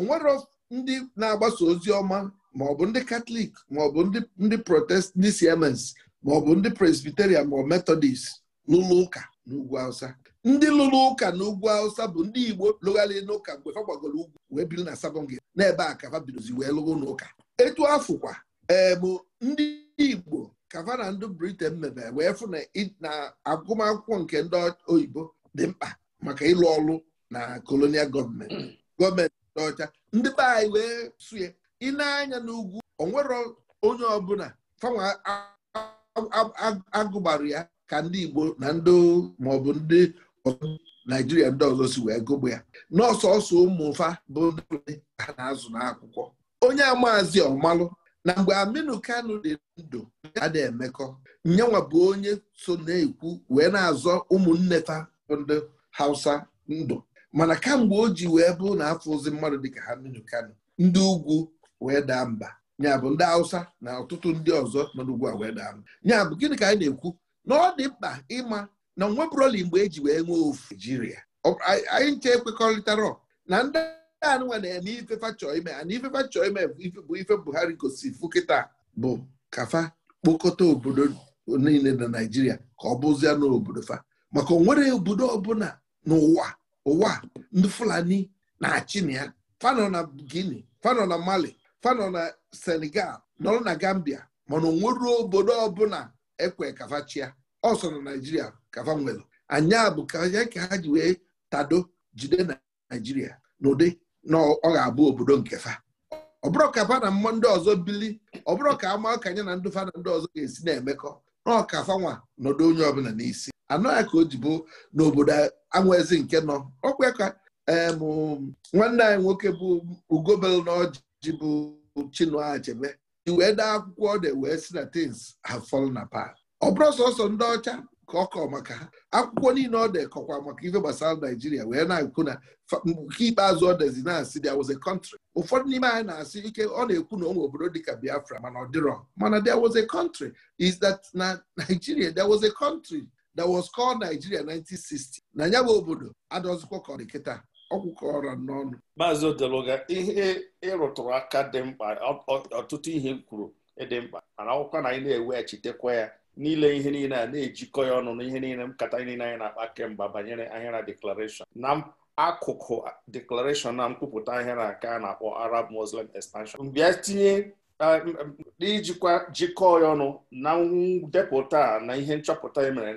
Speaker 2: ndị na-agbasa ozi ọma ma ọ bụ ndị katọlik ma ọ bụ ndị protest ndị siemens ma ọ bụ ndị presbiterian ma ọ metodist n'ụlọ ụka n'ugwu awụsa ndị lụrụ ụka n'ugwu awụsa bụ ndị igbo lụgharị n'ụka mgbe fa gbagoro ugwu wee biri na sabọngị n'ebe a ka fa bidozi wee lụrụ n'ụka etu afụkwa ee bụ ndị igbo kavana ndụ na ndị briten mebe wee fụ na agụmakwụkwọ nke ndị oyibo dị mkpa maka ịlụ ọrụ na kolonial gọọmenti mm. gọọmenti ndị ọcha ndị be anyị wee sụye ị na-anya n'ugwu onwere onye ọbụla fanwa agụgbara ya ka ndị Igbo na ndị maọbụ ndị Naijiria ndị ọzọ si wee gụgbu ya n'ọsọsọ ụmụfa bụ ndị ha na-azụ n'akwụkwọ onye amaazị ọmalụ na mgbe Aminu Kanu dị ndụ adị emekọ nyenwa bụ onye so na-ekwu wee na-azọ ụmụnne fa ndị Hausa ndụ mana kamgbe o ji wee bụ na afọ ozi mmadụ dịka Aminu Kanu ndị ugwu wee daa mba ya bụ ndị Hausa na ọtụtụ ndị ọzọ nọ n'ugwu a wee daa mba bụ gịnị ka anyị na-ekwu na ọ dị mkpa ịma na onwebụroli mgbe eji wee nwee ofu naijiria anyị nche ekwekọrịtara na ndị anụnwa na-eme ifefa chọọ ime ana chọọ ime bụ ife Buhari gosi fukịta bụ kafa kpokọta obodo niile na naijiria ka ọ bụzie n'obodo fa maka onwere obodo ọbụla n'ụwa ụwa ndị Fulani na-achị na ya fanọ na Guinea fanọ na Mali fanọ na Senegal nọrọ na Gambia mana onweruo obodo ọbụla ekwe kafachia ọsọ na Naijiria kafa nwelu anya bụ ka ha ji wee tado jide na Naijiria n'ụdị na ọ ga-abụ obodo nke fa ọ bụrụ ka fa na ndị ọzọ bili ọ bụrụ ka ama ka anya na ndị fa na ndị ọzọ ga-esi na-emekọ na ọkafa nwa nọdụ onye ọbụla n'isi anọghị ka o ji bụ n'obodo anwezi nke nọ ọkwa ka nwanne anyị nwoke bụ ugobel na ọjị jibu bụ Chinua Achebe i wee dee akwụkwọ ọ dị e wee si na things have fallen apart ọ bụrụ sọsọ ndị ọcha ka ọ kọọ maka ha akwụkwọ niile ọ dị kọkwa maka ife gbasara Naijiria wee na-ekwu na nke ikpeazụ ọ dịzi na-asị there was a country ụfọdụ n'ime anyị na-asị ike ọ na-ekwu na onwe obodo dịka Biafra mana ọ dịrọ mana there was a country is that na Nigeria there was a country that was called Nigeria 1960 na ya bụ obodo adọzikwa ka ọ dị kịta ọkwụkọrọ n'ọnụ
Speaker 3: maazị odeluga ihe ịrụtụrụ aka dị mkpa ọtụtụ ihe kwuru dị mkpa mana akwụkwọ na anyị na-eweghachitekwa ya niile ihe niile a na-ejikọ ya ọnụ na ihe niile nkata niile anyị na-akpa kemgbe banyere ahịara deklarashọn na akụkụ deklarashọn na mkwupụta ahịara nke a na-akpọ Arab Muslim Expansion mbịa tinye n'ijikwa jikọọ ya ọnụ na ndepụta na ihe nchọpụta e mere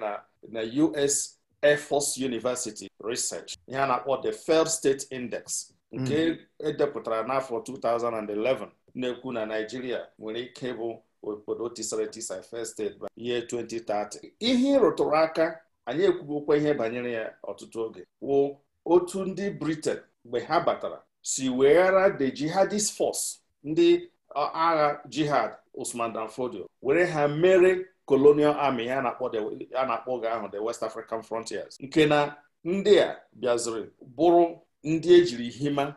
Speaker 3: na US Air University Research ihe a na-akpọ the Failed State Index nke mm-hmm. edepụtara n'afọ 2011 na-ekwu na Naijiria nwere ike bụ obodo tisara etisa failed state by year 2030 ihe ịrụtụrụ aka anyị ekwubokwa ihe banyere ya ọtụtụ oge wụ otu ndị Britain mgbe ha batara si weghara the jihadist force ndị agha jihad Usman Dan Fodio were ha mere colonial army a na-akpọ oge ahụ the West African Frontiers nke na ndị a bịaziri bụrụ ndị ejiri hima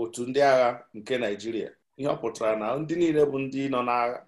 Speaker 3: otu ndị agha nke naijiria ihe ọ pụtara na ndị niile bụ ndị nọ n'agha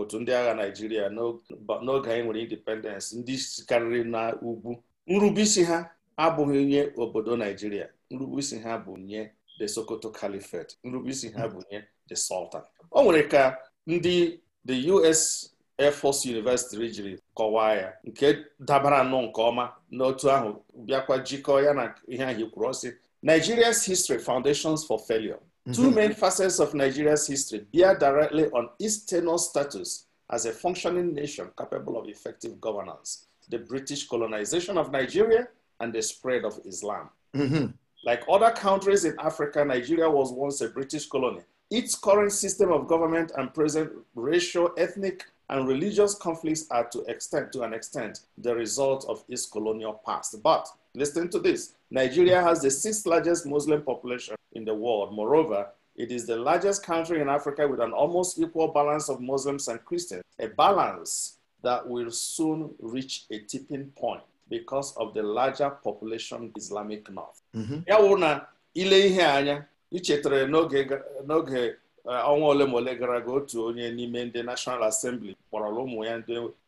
Speaker 3: otu ndị agha naijiria n'oge anyị nwere independence ndị sikarịrị na ugwu nrubeisi ha abụghị nye obodo Naịjirịa nrubeisi ha bụ nye the Sokoto Caliphate nrubeisi ha bụ nye the Sultan o nwere ka ndị the US Air Force University jiri kọwaa ya nke dabara nnọọ nke ọma n'otu ahụ bịakwa jikọọ ya na ihe anyị kwuru ọsị Nigeria's history foundations for failure mhm. two main facets of Nigeria's history bear directly on its status as a functioning nation capable of effective governance the British colonization of Nigeria and the spread of Islam mm-hmm. like other countries in Africa Nigeria was once a British colony its current system of government and present racial ethnic and religious conflicts are to extent to an extent the result of its colonial past. But listen to this: Nigeria has the sixth largest Muslim population in the world. Moreover, it is the largest country in Africa with an almost equal balance of Muslims and Christians, a balance that will soon reach a tipping point because of the larger population Islamic North. Mm-hmm. Ya ile ihe anya ichetara n'oge ọnwa ole ma ole gara aga otu onye n'ime ndị nashonal asembli kpọrọrọ ụmụ ya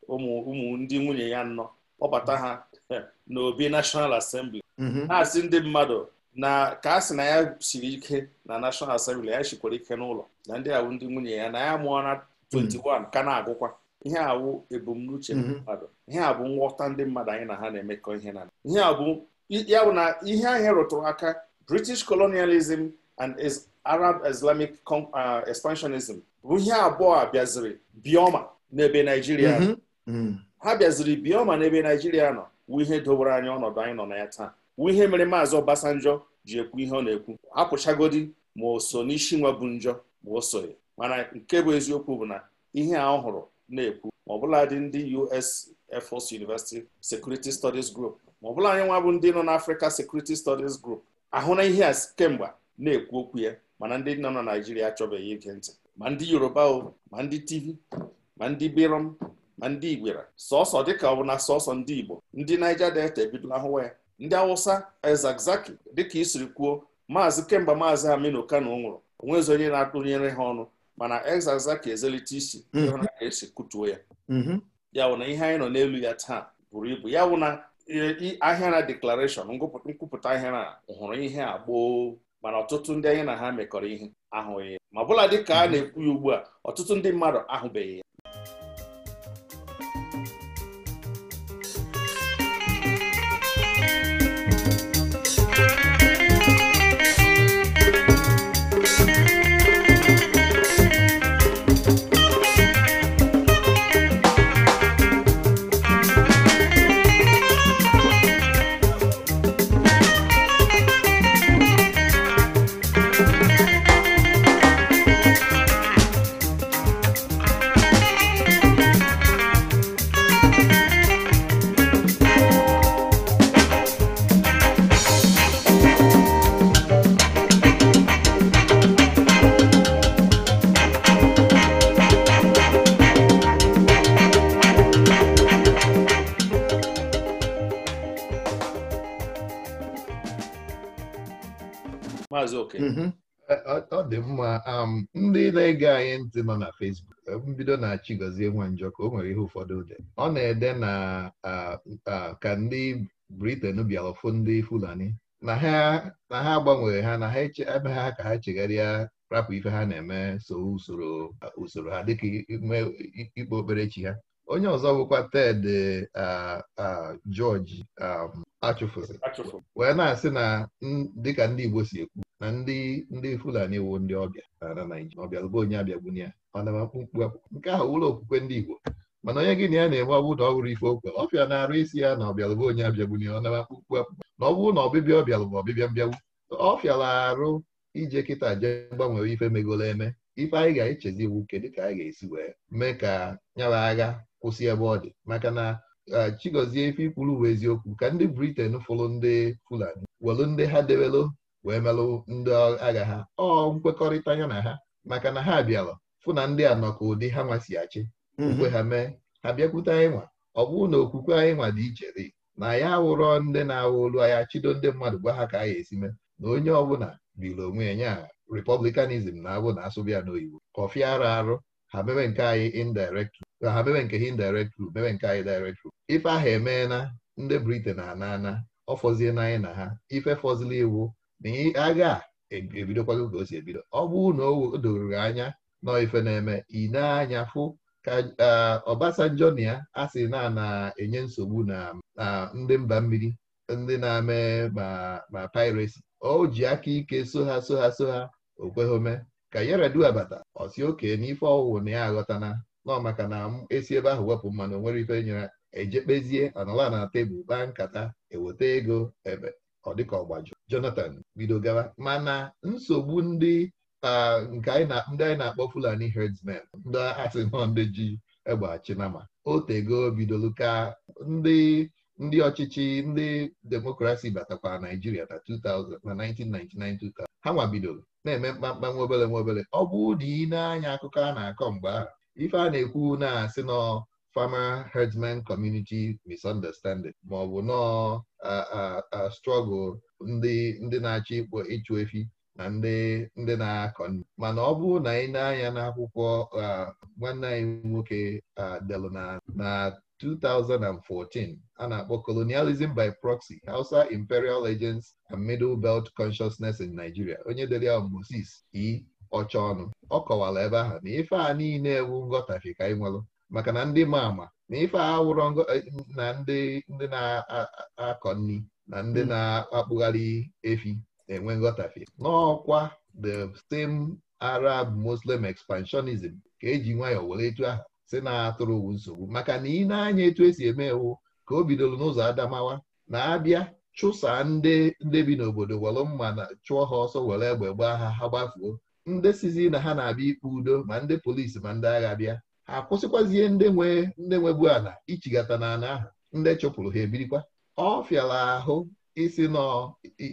Speaker 3: ụmụ ndị nwunye ya nnọ kpọbata ha [LAUGHS] n'obi National asembli. Mhm. na-asị ndị mmadụ na ka a sị na ya siri ike na nashonal asembli ya shikwara ike n'ụlọ na ndị awụ ndị nwunye ya na ya mụọ na 21 ka na-agụkwa ihe awụ ebumnuche mhm. mmadụ ihe a bụ nghọta ndị mmadụ anyị na ha na-emekọ ihe na ya bụ na ihe anyị rụtụrụ aka British colonialism and is Arab Islamic uh, expansionism bụ ihe abụọ a bịaziri bioma n'ebe Naijiria mm-hmm. mm-hmm. ha bịaziri bioma n'ebe Naijiria nọ wụ ihe dobere anya ọnọdụ anyị nọ na ya taa wu ihe mere maazị Obasanjọ ji ekwu ihe ọ na-ekwu apụchagodi ma oso so n'isi nwa bụ njọ ma o soghị mana nke bụ eziokwu bụ na ihe a ọ hụrụ na-ekwu ma ọbụladị ndị US Air University Security Studies Group ma ọbụla anyị nwa bụ ndị nọ n'Africa Security Studies Group ahụ na ihe a kemgbe na-ekwu okwu ya mana ndị nọ na Naijiria achọbeghị ige ntị ma ndị Yoruba o ma ndị Tiv ma ndị Birom ma ndị Igwera sọsọ dịka ọ bụ na sọsọ ndị Igbo ndị Naija Delta ebidola hụwa ya ndị Awụsa ezagzaki dịka isiri kwuo maazị kemgbe maazị Aminu Kano nwụrụ onwezi onye na-atụnyere ha ọnụ mana ezagzaki ezelite isi ịhụna mhm. esi kụtuo ya mhm. ya wụ na ihe anyị nọ n'elu ya taa buru ibu ya wụ na e, ahịa na deklarashọn nkwupụta ahịa na hụrụ ihe a gboo mana ọtụtụ ndị anyị na ha mekọrọ ihe ahụghị ma bụla dị ka a na-ekwu ya ugbu a ọtụtụ ndị mmadụ ahụbeghị ya maazị
Speaker 1: oke mhm. ọ dị mma um, ndị na-ege anyị ntị nọ na Facebook mbido um, na nwa Nwanjọ ka o nwere ihe ụfọdụ ụdị ọ na-ede na ka ndị briten bịara ọfụ ndị Fulani na ha gbanwere ha na ha ebe ha ka ha chegharịa rapụ ife ha na-eme so usoro usoro ha dịka ikpe okperechi ha onye ọzọ bụkwa Ted George um, achụfụrụ wee na-asị na dịka ndị Igbo si ekwu na ndị ndị Fulani wu ndị ọbịa na Naịjirịa ọbịa bụ onye abịagbu ya mana nke ahụ ụlọ okwukwe ndị Igbo mana onye gị na ya na-eme ọ bụrụ na ọ ife okwe ọbịa na-arụ isi ya na ọbịalụbụ onye abịagbu ya ọ naba na ọ bụrụ na ọbịbịa ọbịalụbụ ọbịbịa mbịagbu ọ fịara arụ ije kịta jee gbanwere ife megoro eme ife anyị ga-echezi iwu nke dịka anyị ga-esi wee mee ka nyara agha kwụsị ebe ọ dị maka na Chigozie ife ikwuru bụ eziokwu ka ndị briten fụrụ ndị Fulani welụ ndị ha debelụ wee melụ ndị agha ha ọ nkwekọrịta ya na ha maka na ha bịara fụ na ndị a ka ụdị ha nwasi achị mgbe mhm. ha mee ha bịakwute anyị nwa ọ bụrụ na okwukwe anyị nwa dị iche dị na ya awụrọ ndị na-awụ olu anya chido ndị mmadụ gwa ha ka anyị esi mee na onye ọbụla biri onwe ya nya republicanism na abụ na asụbịa n'oyibo kọfị arụ arụ ha mebe nke anyị indirect na ha mebe nke ha indirect group mebe nke anyị direct group ife ahụ emee ndị Britain ana ana ọ fọzie na anyị na ha ife fọzili iwu na agha e, ebidokwago ka o si ebido ọ bụ na o doruru anya nọ ife na-eme ine anya fụ ka ọbasanjọ na ya a sị na na-enye nsogbu na ndị mba mmiri ndị na-eme ma ma o ji aka ike so ha so ha so ha o kweghome ka Yar'Adua abata, ọsi oke n'ife ọwụwụ na ya aghọtana nọ maka na esi ebe ahụ wepụ mmanụ nwere ife nyere ejekpezie anọla na tebụl baa nkata eweta ego ebe ọ dịka ọgbajọ Jonathan bido gawa mana nsogbu ndị nke ndị anyị na-akpọ Fulani herdsmen ndị asị nọ ndị ji egbe o otego bidolu ka ndị ndị ọchịchị ndị demokrasi batakwa Naijiria na 2000 na 1999 2000 ha nwabidoro na-eme mkpamkpa nwa obele nwa obele ọ bụ ụdị na-anya akụkọ a na-akọ mgbe ahụ ife a na-ekwu na-asị nọ farmer herdsman community misunderstanding ma ọ bụ nọọ struggle ndị na-achọ ịkpọ ịchụ efi na ndị ndị na-akọ mana ọ bụrụ na ị na-anya n'akwụkwọ nwanne anyị nwoke delu na 2014 a na-akpọ colonialism by proxy Hausa imperial legends and middle belt consciousness in Nigeria onye dere ya Moses E ọcha ọnụ ọ kọwara ebe ahụ na ife a niile ewu nghọtafi ka ị maka na ndị ma ama na ife a wụrọ eh, na ndị ndị na-akọ nri na ndị hmm. na-akpụgharị efi na-enwe nghọtafi n'ọkwa the same Arab Muslim expansionism ka eji nwayọọ were etu ahụ si na-atụrụ nsogbu maka na ị na-anya etu esi eme ewu ka o bidoro n'ụzọ Adamawa na-abịa chụsaa ndị ndị bi n'obodo were mma na chụọ ha ọsọ were egbe gbaa ha ha gbafuo ndị sizi na ha na-abịa ikpe udo ma ndị polisi ma ndị agha bịa ha akwụsịkwazie ndị nwe ndị nwebu ala ichigata na ahụ ndị chụpụrụ ha ebirikwa ọ fịara ahụ isi nọ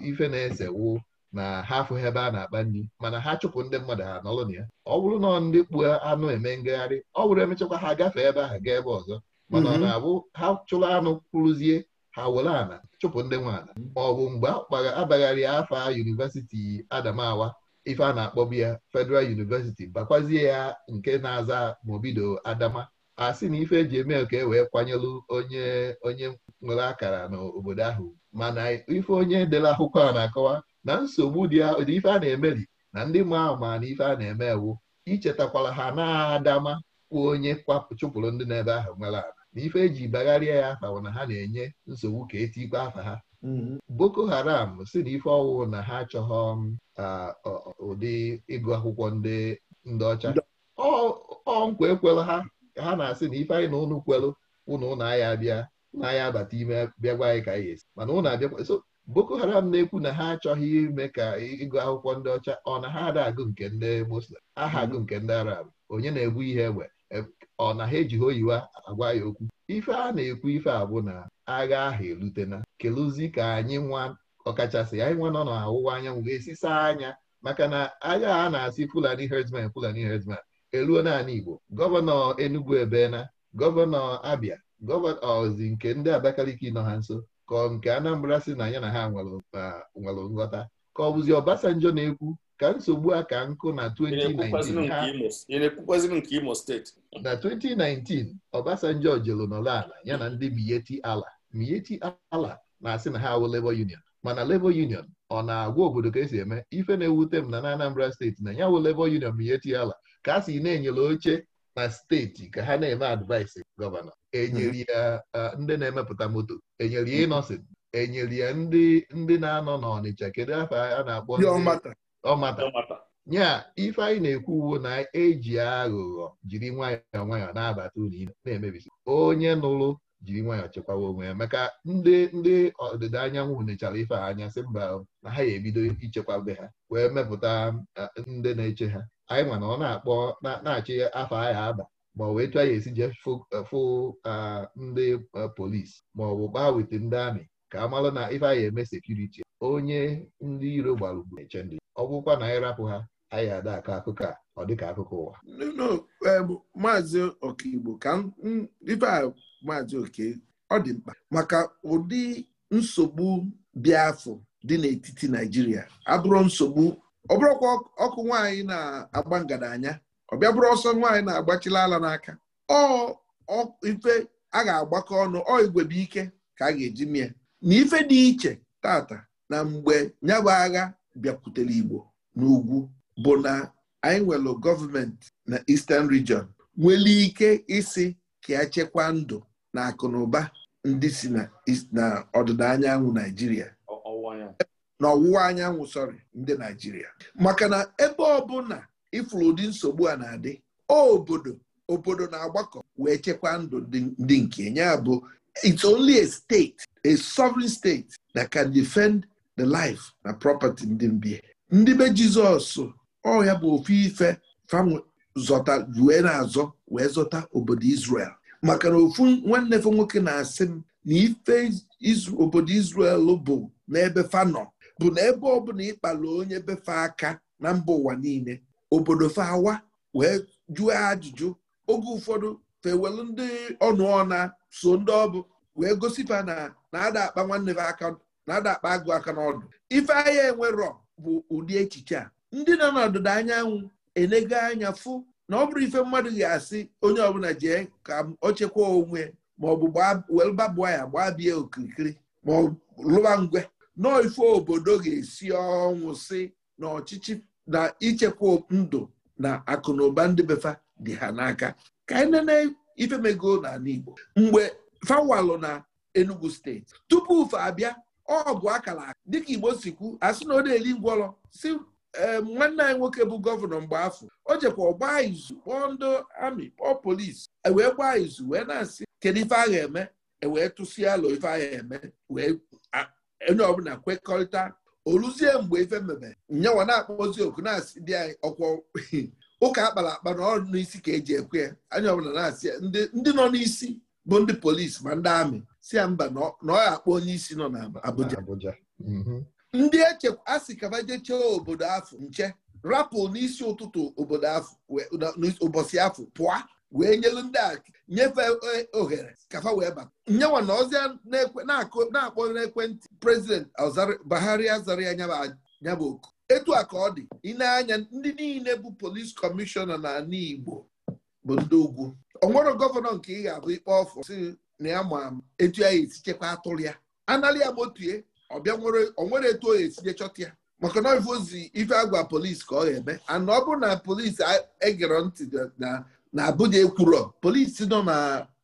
Speaker 1: ife na-esewu na ha afụghị ebe a na-akpa nri mana ha chụpụ ndị mmadụ ha nọrọ na ya ọ bụrụ na ndị kpuo anụ eme ngagharị ọ bụrụ emechakwa ha gafee ebe ahụ gaa ebe ọzọ mana ọ mhm. na-abụ ha chụrụ anụ kwụrụzie ha were ala chụpụ ndị nwe ala ma ọ bụ mgbe akpagharị afa yunivesiti Adamawa ife a na-akpọbu ya Federal University bakwazie ya nke na-aza ma Adama a sị na ife eji eme ka e wee kwanyelu onye onye nwere akara n'obodo ahụ mana ife onye dere akwụkwọ a na-akọwa na nsogbu dị ife a na emeli na ndị ma ma na ife a na-eme ewu ichetakwara ha na-adama kpụ onye chụpụrụ ndị n'ebe ahụ nwere ala na ife eji bagharịa ya afa na ha na-enye nsogbu ka etikwa afa ha Mm-hmm. Boko Haram si na ife ọwụwụ na ha achọghọ um, ụdị ịgụ akwụkwọ ndị ọcha ọ nkwa ekwelụ ha ha na-asị na ife anyị na ụnụ kwelụ ụnụ ụnụ agha abịa ụnụ agha abata ime bịa gwa anyị ka anyị esi mana ụnụ abịakwa so Boko Haram na-ekwu na ha achọghị ime ka ịgụ akwụkwọ ndị ọcha ọ na ha ada agụ nke ndị Muslim aha mm-hmm. agụ nke ndị Arab onye na-egbu ihe egbe ọ na ha ejighị oyiwa agwa ya okwu ife a na-ekwu ife abụ na agha ahụ erutena kelụzi ka anyị nwa ọkachasị anyị nwa nọ n'ọwụwa anyanwụ ga-esisa anya maka na agha a na-asị fulani herdsmen fulani herdsmen eruo naanị igbo gọvanọ enugu ebena gọvanọ abia gọvanọ ozi nke ndị abakaliki nọ ha nso ka nke anambra si na ya na ha nwere nghọta ka ọ bụzi ọbasanjọ na-ekwu ka nsogbu a ka nkụ na
Speaker 3: 2019
Speaker 1: na 2019 Obasanjo jelu nọrọ ala ya na ndị mieti Ala Miyetti Ala na-asị na ha awụ Labour Union mana Labour Union ọ na-agwa obodo ka esi eme ife na-ewute m na na Anambra steeti na ya wụ Labour Union Miyetti Ala ka a na-enyere oche na steeti ka ha na-eme advaịsị gọvanọ enyere ya ndị na-emepụta moto enyere ya ịnọsin enyere ya ndị ndị na-anọ n'Ọnịcha kedu afọ a na-akpọ ọmata ya ife anyị na-ekwu uwo na eji aghụghọ jiri nwayọọ nwayọọ na-abata ụlọ ile na-emebisi onye nụrụ jiri nwayọọ chekwawa onwe ya maka ndị ndị ọdịda anyanwụ nechara ife anya sị mba na ha ga-ebido ichekwabe ha wee mepụta ndị na-eche ha anyị nwa na ọ na-akpọ na-achị afọ anyị aba ma ọ bụ etu anyị esi jee fụ ndị polisi ma ọ bụ gbaa ndị amị ka a marụ na ife anyị eme sekuriti onye ndị iro gbara ugbu na-eche ndị ọ bụkwa na ha anyị ada aka akụkọ a ọ dịka akụkọ ụwa
Speaker 2: e, maazị Okigbo ka ife a maazị oke ọ dị mkpa maka ụdị nsogbu bịafụ dị n'etiti Naịjirịa abụrụ nsogbu ọ bụrụkwa ọkụ nwaanyị na-agba ngadanya ọ bịa bụrụ ọsọ nwaanyị na-agbachila ala n'aka ọ ife a ga-agbakọ ọnụ ọ igwebe ike ka a ga-eji mie na ife dị iche tata na mgbe nyabụ agha bịakwutere Igbo n'ugwu bụ na anyị nwere gọọmenti na Eastern Region nwere ike isi ka echekwa ndụ na akụnụba na ụba ndị si na ọdịda anyanwụ Naijiria na ọwụwa anyanwụ sọrị ndị Naijiria maka na ebe ọbụla ifuru ụdị nsogbu a na-adị obodo obodo na-agbakọ wee chekwaa ndụ ndị nke ya bụ it's only a state a sovereign state that can defend the life na property ndị mbi ndị be Jizọs ọhịa bụ ofu ife fanwe zọta wee na-azọ wee zọta obodo Israel maka na ofu nwanne fe nwoke na-asị m na ife obodo Izrel bụ n'ebe nọ bụ na ebe ọbụla ịkpala onye befe aka na mba ụwa niile obodo fe awa wee jụọ ajụjụ oge ụfọdụ fewelu ndị ọnụ ọna so ndị ọbụ wee gosipa na na ada akpa nwanne fe aka na-ada akpa agụ aka n'ọdụ ife enwe enwerọ bụ ụdị echiche a ndị nọ n'ọdịda anyanwụ enego anya fụ na ọ bụrụ ife mmadụ ga-asị onye ọbụla jee ka o chekwa onwe maọbụ welbabụ ya gbaa bie okirikiri ma ọ lụwa ngwe na ife obodo ga-esi ọnwụ si na ọchịchị na ichekwa ndụ na akụ na ụba ndị befa dị ha n'aka ka anyị nene ife mego n'ala Igbo mgbe fawalụ na Enugu steeti tupu ufe abịa ọ bụ akara aka dịka igbo sikwu asị na ọ na-eli ngwọrọ si eh, nwanne anyị nwoke bụ gọvanọ mgbe afọ o jekwa ọgbaa izu kpọọ ndị amị kpọọ polisi e wee gbaa izu wee na-asị kedu ife agha eme ewee tụsịa alụ ife agha eme wee onye ọbụla kwekọrịta oluzie mgbe ife mebe nyawa na-akpọzi oku na-asị dị anyị ọkwọ [LAUGHS] ụka akpara akpa na ọrụ n'isi ka eji ekwe anya ọbụla na-asị ndị nọ n'isi bụ ndị polisi ma ndị amị si ya mba na ọ ga-akpọ onye isi nọ na Abuja mhm. ndị eche asị kaba jechee obodo afọ nche rapụ n'isi ụtụtụ obodo afọ ụbọchị afọ pụa wee nyelu ndị a nyefee ohere kafa wee bata nyewa na ọzọ na-akpọ n'ekwentị prezident Buhari azara ya nyaba oku etu a ka ọ dị ị anya ndị niile bụ polis kọmishọna na Igbo bụ ndị ugwu o nwere gọvanọ nke ị ga-abụ ikpe ọfọ na ya ma etu ya esi chekwa atụrụ ya anali ya gbotue ọbịa onwere etu oya etinye chọta ya maka na ozi ife agwa polisi ka ọ ga-eme ana ọ bụrụ na polisi egere ntị na abụja ekwurọ polisi nọ na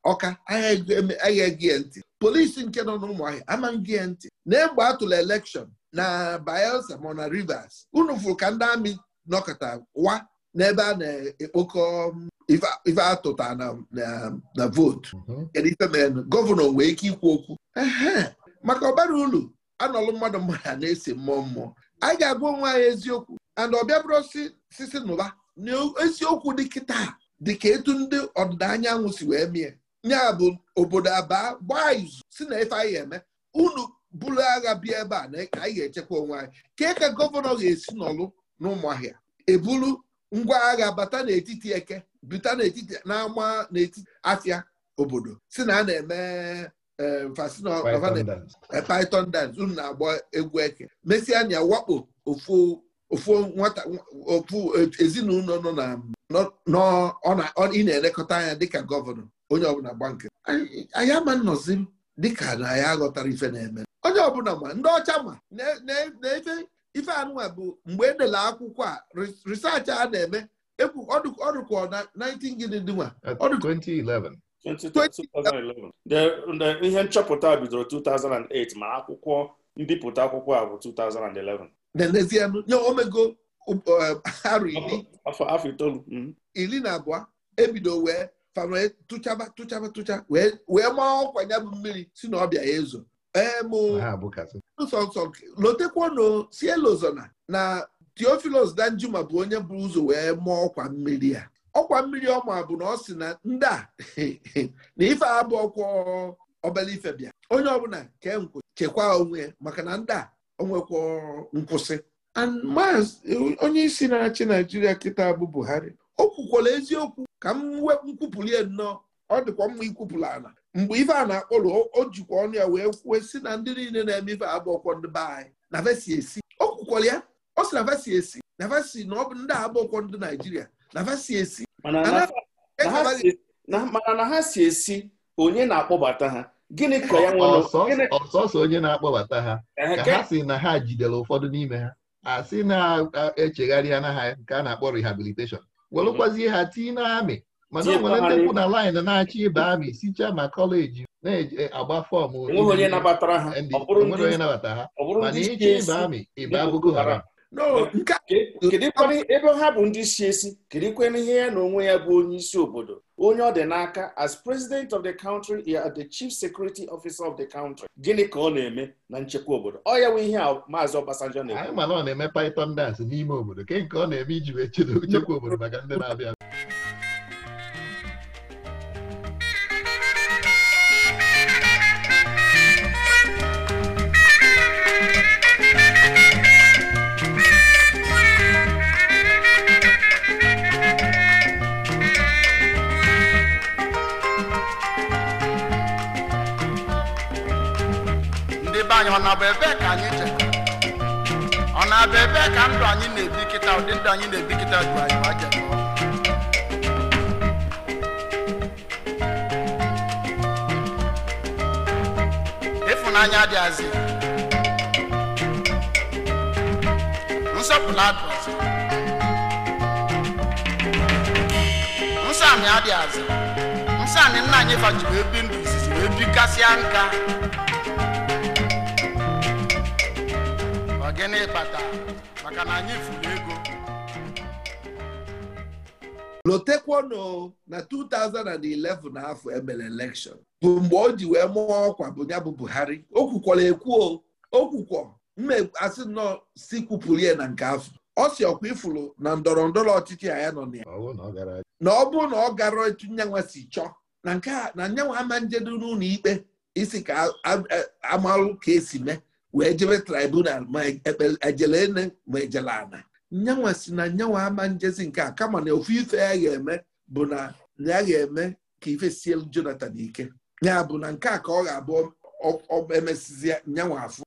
Speaker 2: Ọka gị ya ntị polisi nke nọ n'ụmụahịa amaghị ya ntị na egbe atụla elekshọn na Bayelsa ma na Rivers unu fụrụ ka ndị amị nọkọta wa n'ebe a na-ekpokọ um, ife atụta na votu. Mhm. kedu ife mere gọvanọ nwee ike ikwu okwu maka ọbara ulu anọlụ mmadụ mmadụ a na esi mmụọ mmụọ anyị ga-agwa onwe anyị eziokwu and ọbịa bụrụ sisi n'ụba N'eziokwu dị etu ndị ọdịda anyanwụ si wee mie ya bụ obodo abaa gbaa izu si na ife anyị eme unu buru agha bịa ebe a na ka anyị ga-echekwa onwe anyị kee ka gọvanọ ga-esi n'ọlụ n'ụmụahịa ebulu ngwa agha bata n'etiti eke buta n'etiti na n'etiti afia obodo si na a na-eme e, e, python dance unu na-agba egwu eke mesịa wakpo ofu nwata ofu ezinụlọ nọ na ị na-elekọta anya dịka gọvanọ onye ọbụla gba nke anyị ama nnọzi dịka na ya aghọtara ife na-eme onye ọbụla ma ndị ọcha ma na-efe ife anụnwa bụ mgbe edela akwụkwọ a risaachị a na-eme e ọdụkọ na 19 gịnị dịnwa
Speaker 3: 2011 ihe nchọpụta bidoro 2008 ma akwụkwọ mbipụta akwụkwọ a bụ 2011
Speaker 2: n'ezie um, nye omego um, uh, afọ itoolu mm-hmm. iri na abụọ ebido wee fara tụchaba tụchaba tụcha wee maa ọkwa ya bụ mmiri si na ọbịa ya ezo nsọnsọ lotekwanụ si na Theophilus Danjuma bụ onye bụ ụzọ wee mụọ ọkwa mmiri ya ọkwa mmiri ọma bụ na ọ sị na ndị a [LAUGHS] na ife abụ ọkwa obele ife bịa onye ọbụla ke nkwụ chekwaa onwe maka na ndị a onwekwa nkwụsị onye isi na-achị Naijiria kịta bụ Buhari o kwukwala eziokwu ka m nkwupụlie nnọọ ọ dịkwa mma ikwupụla ana mgbe ife a na-akpọrọ o jikwa ọnụ ya wee kwuo si na ndị niile na-eme ife abụọkwọ ndị be anyị na vesi esi o kwukwara ya ọ sị na vesi esi
Speaker 3: na vesi na ọ bụ ndị abụọkwọ ndị naijiria na vesi esi e mana na ha si esi onye na-akpọbata ha gịnị ka ya ọsọsọ
Speaker 1: onye na-akpọbata ha ka ha si na ha jidere ụfọdụ n'ime ha
Speaker 3: a sị na-echegharị
Speaker 1: anaghị nke a na-akpọ rehabilitation welụkwazie ha tii na amị mana um um o nwere ndị mụ na laịn na-achọ ibe amị sichaa ma kọleji na-agba fọm onye
Speaker 3: ha ebe ha bụ ndị si esi kedụkwana ihe ya na onwe ya bụ onye isi obodo onye ọ dị n'aka as president of the country the chief security officer of the country gịnị ka ọ na-eme na nchekwa obodo ọ ya nwe ihe a maazị Ọbasanjọ na-eme
Speaker 1: mana ọ na-eme python dance n'ime obodo ke nke ọ na-eme iji wee chedo nchekwa obodo maka ndị na-abịa bụ ka anyị jere ọ na-abụ ebe ka ndụ anyị na-ebi kịta ụdị ndụ anyị na-ebi kịta bụ anyị ma jere ịfụnanya dị azị nsọpụrụ adụ azị nsọ amị adị azị nsọ nna anyị fajiri ebi ndụ izizi wee bikasịa nka
Speaker 2: gịnị kpata maka na anyị furu ego lotekwono na 2011 afọ emere elekshọn bụ mgbe o ji wee mụọ ọkwa bụ ya bụ Buhari o kwukwara ekwuo o kwukwọ asị si kwupụrụ ya na nke afọ ọ si ọkwa ifuru na ndọrọ ndọrọ ọchịchị ya nọ na ya na ọ bụrụ na ọ gara etu nyanwa si chọọ na nke a na nyanwa ama njedo n'ụlọ ikpe isi ka amalụ ka esi mee wee jebe tribunal ma ejele ene ma ejele ana nyanwa si na nyanwa ama njezi nke a kama na ofu ife ya ga-eme bụ na ya ga-eme ka ife sie Jonathan ike ya bụ na nke a ka ọ ga-abụ emesizi nyanwa afọ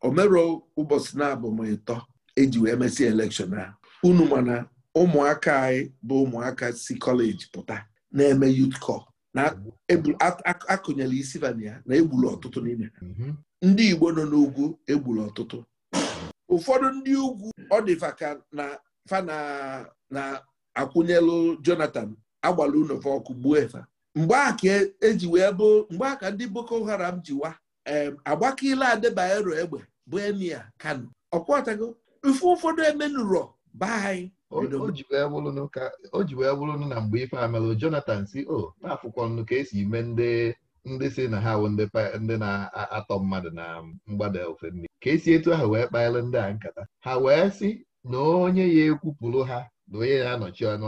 Speaker 2: omero ụbọchị na-abụ m ịtọ eji wee mesie elekshọn a unu mana ụmụaka anyị bụ ụmụaka si kọleji pụta na-eme youth kọl. na akụnyela isi vania na egburu ọtụtụ n'ime mhm. ndị Igbo nọ n'ugwu egburu ọtụtụ ụfọdụ ndị ugwu ọ dịfa ka na fa na akwụnyelụ Jonathan agbala ụlọfa ọkụ gbuo efa mgbe a ka eji wee bụ mgbe a ka ndị Boko Haram jiwa agbakila adebaero egbe bụ emia Kano ọkwatago ife ụfọdụ emenụrọ
Speaker 1: baa anyị o ji wee bụrụnụ na mgbe ife amelụ Jonathan si o na afụkwọ nnu ka esi ime ndị ndị si na ha ndị na-atọ mmadụ na mgbada ofe nri ka esi etu ahụ wee kpaara ndị a nkata ha wee sị na onye ya ekwupụrụ ha na onye na-anọchi ọnụ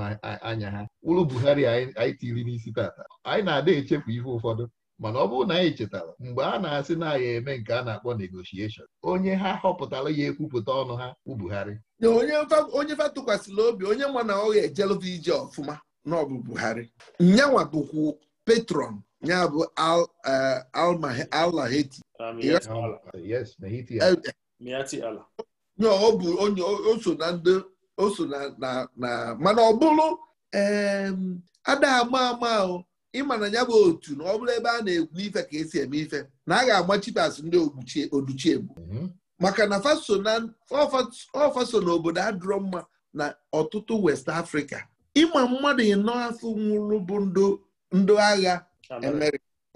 Speaker 1: anya ha wụrụ Buhari anyị tiri n'isi tata anyị na-ada echefu ihe ụfọdụ mana ọ bụrụ na anyị chetara mgbe a na-asị na anyị eme nke a na-akpọ negotiation onye ha họpụtara ya ekwupụta ọnụ ha bụ Buhari
Speaker 2: onye fa tụkwasịla obi onye ma na ọ ga-ejelụva ije ọfụma na ọ bụ Buhari nyanwa bụkwu patron ya bụ Al-Lahati eh, o so na mana ọ bụrụ ada ama ama ahụ ịma na ya bụ otu na ọ bụrụ ebe a na-egwu ife ka esi eme ife na a ga-agbachitas agba ndị oduchiegbu mhm. maka na ọfaso na obodo adụrọ mma na ọtụtụ west afrịka ịma mmadụ ịnọ afọ nwụrụ bụ ndị agha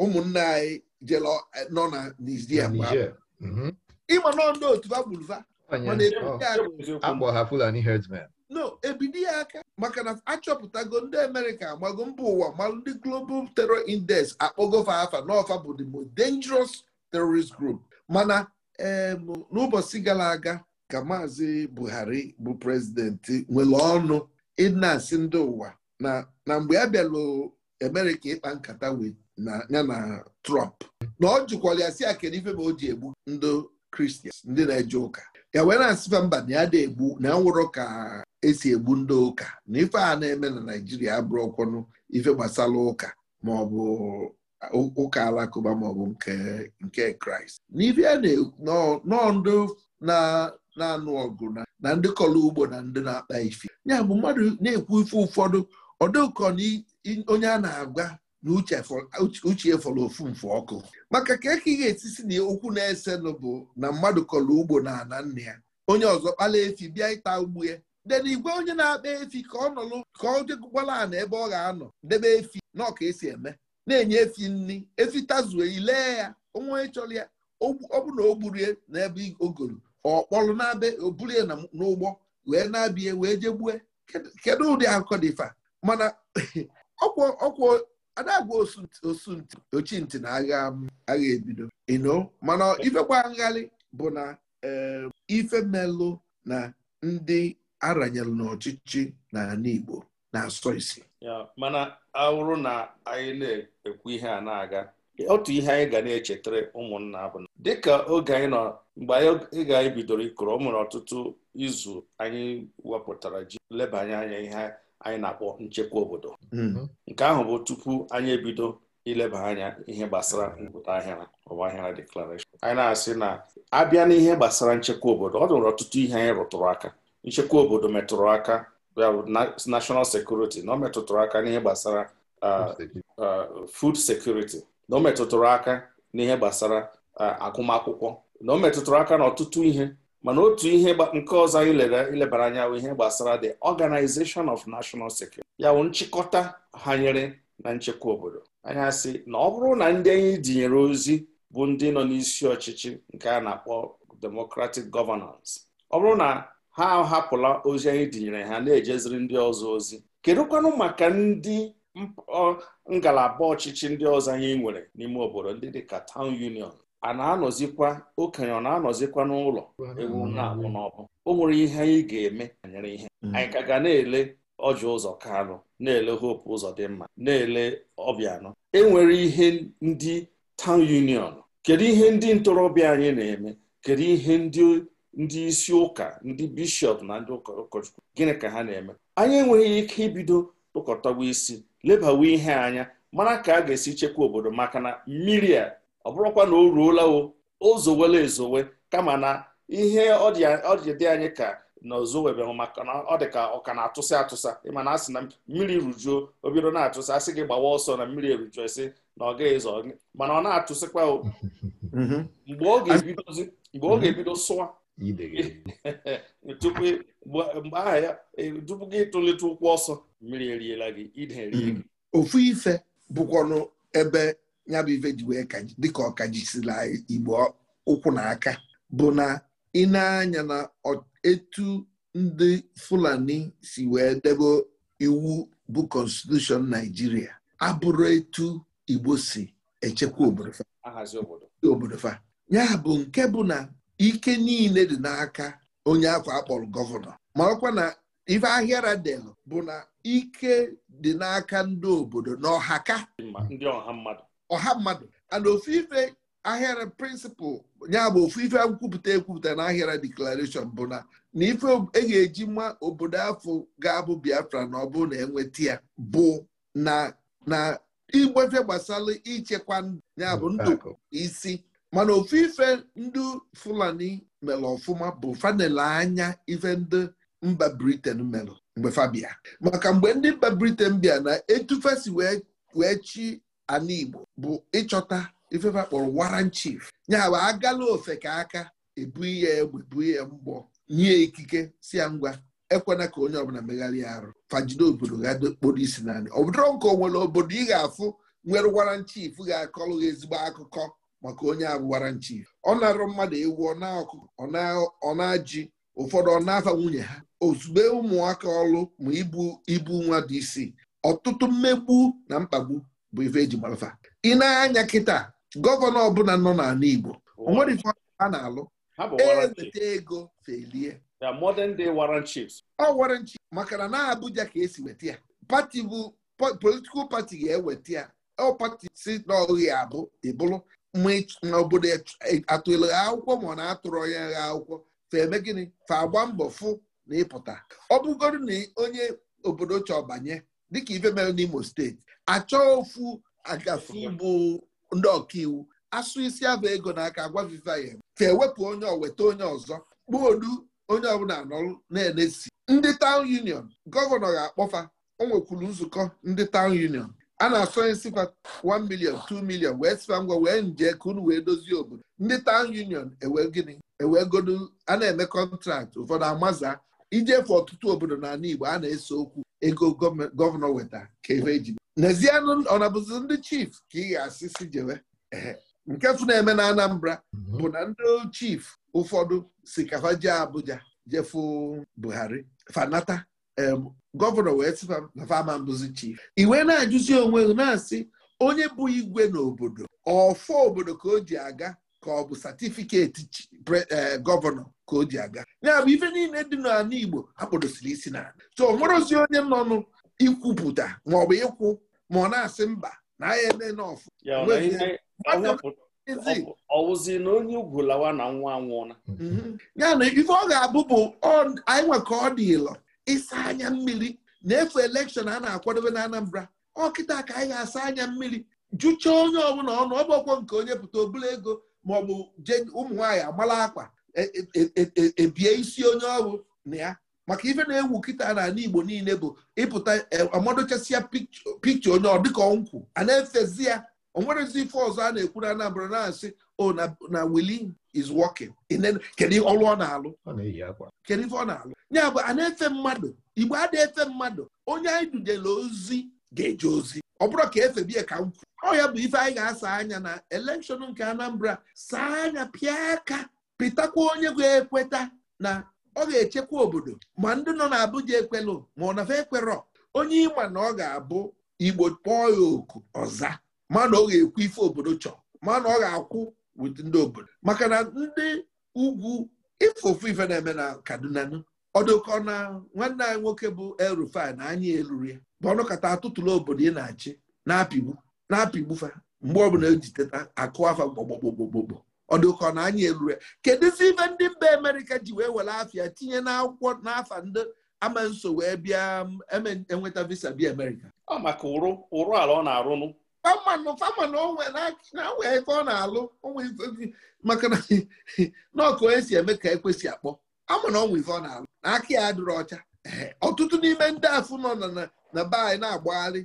Speaker 2: ụmụnne anyị jere e, nọ na Nigeria mhm. ịma nọ ndị otu no ebido ya aka maka na achọpụtago ndị amerịka agbago mba ụwa malụ ndị global terror index akpọgofa afa n'ọfa bụ the most dangerous terrorist group mana n'ụbọchị gara aga ka maazị buhari bụ prezidenti nwere ọnụ ịna-asị ndị ụwa na mgbe a bịalụ amerịka ịkpa nkata wee ya na trump na ọ jụkwara ya si ya ife ma o ji egbu ndị kristian ndị na-eje ụka ya wee na-asịfa mba na ya da egbu na ya nwụrụ ka esi egbu ndị ụka na ife a na-eme na Naijiria abụrụ ọkwọnụ ife gbasara ụka ma ọ bụ ụka alakụba ma ọ bụ nke Kraịst n'ife a ndị na-anụ ọgụ na ndị kọrọ ugbo na ndị na-akpa ife ya bụ mmadụ na-ekwu ife ụfọdụ ọdụkọ na onye a na-agwa na uche fọrọ ofu mfe ọkụ maka ka eke ga-etisi na okwu na-esenụ bụ na mmadụ kọrọ ugbo na ana nna ya onye ọzọ kpala efi bịa ịta ugbu ya den igwe onye na-akpa efi ka ọ nọlụ ka ọ jekwala ana ebe ọ ga-anọ debe efi na ọka esi eme na-enye efi nri efi tazue ilee ya onwe chọrọ ya ọ bụ na o oh, gburie eh, n'ebe ogoru ọkpọlụ na-abịa obulie n'ụgbọ wee na-abịa eh, wee jegbue eh. kedu ụdị akụkọ dịfa mana ọkwụ adagwa osunti na agha agha ebido ino mana ifekwa nghalị bụ na ife melụ na ndị aranyere n'ọchịchị n'ala Igbo na-asọ isi
Speaker 3: mana awụrụ na anyị na-ekwu ihe a na-aga otu ihe anyị ga na-echetara ụmụnna bụ na dịka oge anyị nọ mgbe anyị ga bidoro ikoro ọ nwere ọtụtụ izu anyị wepụtara ji lebanye anya ihe anyị na-akpọ nchekwa obodo hmm. nke ahụ bụ tupu anyị ebido ileba anya ihe gbasara mpụta ahịara ọgbaghara deklarashọn anyị na-asị na abịa n'ihe gbasara nchekwa obodo ọ dụrụ ọtụtụ ihe anyị rụtụrụ aka nchekwa obodo metụrụ aka ya national security na ọ metụtụrụ aka n'ihe gbasara food security na ọ metụtụrụ aka n'ihe gbasara agụmakwụkwọ na ọ metụtụrụ aka n'ọtụtụ ihe mana otu ihe nke ọzọ anyị ilebara anya bụ ihe gbasara the organization of national security ya bụ nchịkọta hanyere na nchekwa obodo anyị asị na ọ bụrụ na ndị anyị dinyere ozi bụ ndị nọ n'isi ọchịchị nke a na-akpọ democratic governance ọ bụrụ na ha ahapụla ozi anyị tinyere ha na-ejeziri ndị ọzọ ozi kedụkwanụ maka ndị ngalaba ọchịchị ndị ọzọ anyị nwere n'ime obodo ndị dị ka town union a na-anọzikwa okenye ọ na-anọzikwa n'ụlọ ewu na-abụ n'ọbụ o nwere ihe anyị ga-eme banyere ihe mm. anyị ka ga na-ele ọjọ ụzọ kanụ na-ele hope ụzọ dị mma na-ele e enwere ihe ndị town union kedu ihe ndị ntorobịa anyị na-eme kedu ihe ndị ndị isi ụka ndị bishọp na ndị ụkọchukwu gịnị ka ha na-eme anyị enweghị ike ibido tụkọtawa isi lebawa ihe anya mara ka a ga-esi chekwa obodo maka na mmiri a ọ bụrụkwa na o ruola o ozowela ezowe kama na ihe ọdịdị anyị ka na ozowebehụ maka na ọ dị ka ọ ka na-atụsị atụsa ịma na asị na mmiri rujuo o bido na atụsa asị gị gbawa ọsọ na mmiri erujuo esi na ọ gaghị ezo mana ọ na-atụsịkwa [LAUGHS] mgbe ọ ga-ebido sụwa ide [LAUGHS] tupu mgbe aha ya e, tupu gị tụlite ụkwụ ọsọ mmiri eriela gị ide erie gị
Speaker 2: ofu ife bụkwanụ ebe ya bụ ife ji wee dịka ọkajisila igbo ụkwụ na aka bụ na ị na-anya na etu ndị Fulani si wee debe iwu bụ konstitushọn Naijiria abụrụ etu Igbo si echekwa obodo fa ya bụ nke bụ na ike niile dị n'aka onye akwa akpọrọ gọvanọ ma ọkwa na ife ahịa radel bụ na ike dị n'aka ndị obodo na ọhaka ọha mmadụ ana ofu ife ahịara prịnsịpal ya bụ ofu ife nkwupụta ekwupụta na ahịara deklarashọn bụ na na ife e ga-eji nwa obodo afọ ga-abụ biafra na ọ bụrụ na enweta ya bụ na na igbefe gbasara ichekwa ya bụ ndụ isi mana ofu ife ndị fulani mere ọfụma bụ fanele anya ife ndị mba briten mere mgbe fabia maka mgbe ndị mba briten bịa na etufesi wee chi ana igbo bụ ịchọta ifefe kpọrọ waran chief ya agala ofe ka aka ebu ya egbe bu ya e mgbọ nye ikike si ya ngwa ekwena ka onye ọbụla megharịa arụ fajide obodo ga kporo isi naanị ọ bụdọrọ nke nwere obodo ị ga-afụ nwere waran chief ga-akọlụ ezigbo akụkọ maka onye agwụwara nchi ọ na-arụ mmadụ ewu ọ na-ajị ụfọdụ ọ na-afa nwunye ha ozugbo ụmụaka ọlụ ma ibu ibu nwa dị isi. ọtụtụ mmegbu na mkpagbu bụ ife eji marafa ị na-anya kịta gọvanọ ọbụla nọ n'ala Igbo o nwere ife a na-alụ eweta
Speaker 3: ego felie ọ
Speaker 2: warrant maka na na Abuja ka esi weta ya pati bụ politikal pati ga-eweta ya ọ pati si n'ọghị abụ ịbụrụ na obodo e, atụrụ ha akwụkwọ ma ọ na-atụrụ ya akwụkwọ fa eme gịnị fa agba mbọ fụ na ịpụta ọ bụgoro na onye obodo chọọ banye dịka ife mere n'Imo steeti achọọ ofu agafe bụ ndị ọkaiwu asụ isi aba ego n'aka agwaviva ya fa ewepụ onye oweta onye ọzọ kpuo olu onye ọbụla anọrụ na-enesi ndị taụn union gọvanọ ga-akpọfa o nwekwuru nzukọ ndị taụn union a na-asọ nye sikwa 1 million 2 million wee sịkwa ngwa wee nje ka unu wee dozie obodo ndị town union ewe gịnị ewe godu a na-eme kọntraktị ụfọdụ amaza ijefe ọtụtụ obodo n'ala Igbo a na-ese okwu ego gọvanọ weta ka ebe eji n'ezianụ ọnabụzi ndị chief ka ị ga-asị si jewe nke fụ na-eme na Anambra mhm. bụ na ndị chief ụfọdụ si kafa jee Abuja jefu Buhari fanata Um, gọvanọ wee sị na fama mbụzi chief iwe na-ajụzi onwe gị na-asị onye bụ igwe n'obodo ọfọ obodo ka o ji aga ka ọ bụ satifiketi eh, gọvanọ ka o ji aga ya bụ ife niile dị n'ala Igbo akpọdosiri isi na so o nwere onye nọ n'ikwupụta ma ọ bụ ịkwụ ma ọ na-asị
Speaker 3: mba na ahịa eme n'ọfụ ọwụzi na onye ugwu lawa na nwa na.
Speaker 2: Mhm. ya na ife ọ ga-abụ bụ anyị nwe ka ọ dị ịlọ ịsa anya mmiri na efe elekshọn a na-akwadobe na Anambra ọkịta ka anyị ga-asa anya mmiri jụchaa onye ọbụla ọnụ ọgbọkwọ nke onye pụta obula ego ma ọ bụ je ụmụ agbala akwa ebie e, e, e, isi onye ọrụ na ya maka ife na-ewu kịta n'ala Igbo niile bụ ịpụta amadochasịa pikcha onye ọ dịka nkwụ a na-efezi ya onwerezi ife ọzọ a na-ekwu na Anambra na-asị o oh, na Willie is working kedu ọrụ ọ na-alụ kedu ife ọ na-alụ ya bụ a na-efe mmadụ igbo a efe mmadụ onye anyị dujela ozi ga-eje ozi ọ bụrụ ka bie ka m ọ ya bụ ife anyị ga-asa anya na elekshọn nke Anambra saa anya pịa aka pịtakwa onye ga-ekweta na ọ ga-echekwa obodo ma ndị nọ n'Abuja ekwelụ ma ọ nafe ekwerọ onye ịma na ọ ga-abụ igbo kpọọ ya oku ọza ma na ọ ga-ekwu ife obodo chọọ ma na ọ ga-akwụ wit ndị obodo maka na ndị ugwu ife ofu ife na-eme na Kaduna ọdụkọ na nwanne anyị nwoke bụ el na anyị eluru ya bụ ọnụkọta atụtụlụ obodo ị na-achị na-apịgbu na fa mgbe ọbụla ejiteta akụ afa gbogbogbogbogbogbo ọdụkọ na anyị eluru ya kedụzi ibe ndị mba Amerịka ji wee were afịa tinye n'akwụkwọ n'afa ndị ama nso wee bịa enweta visa bi Amerịka ọ maka ala ọ na famanụ famanụ na-awe ọ na-alụ onwe maka na [LAUGHS] ọkụ onye si eme ka ekwesị akpọ ama na ọnwa ife ọ na-alụ aka ya adịrị ọcha ọtụtụ n'ime ndị afụ nọ na be anyị na-agbagharị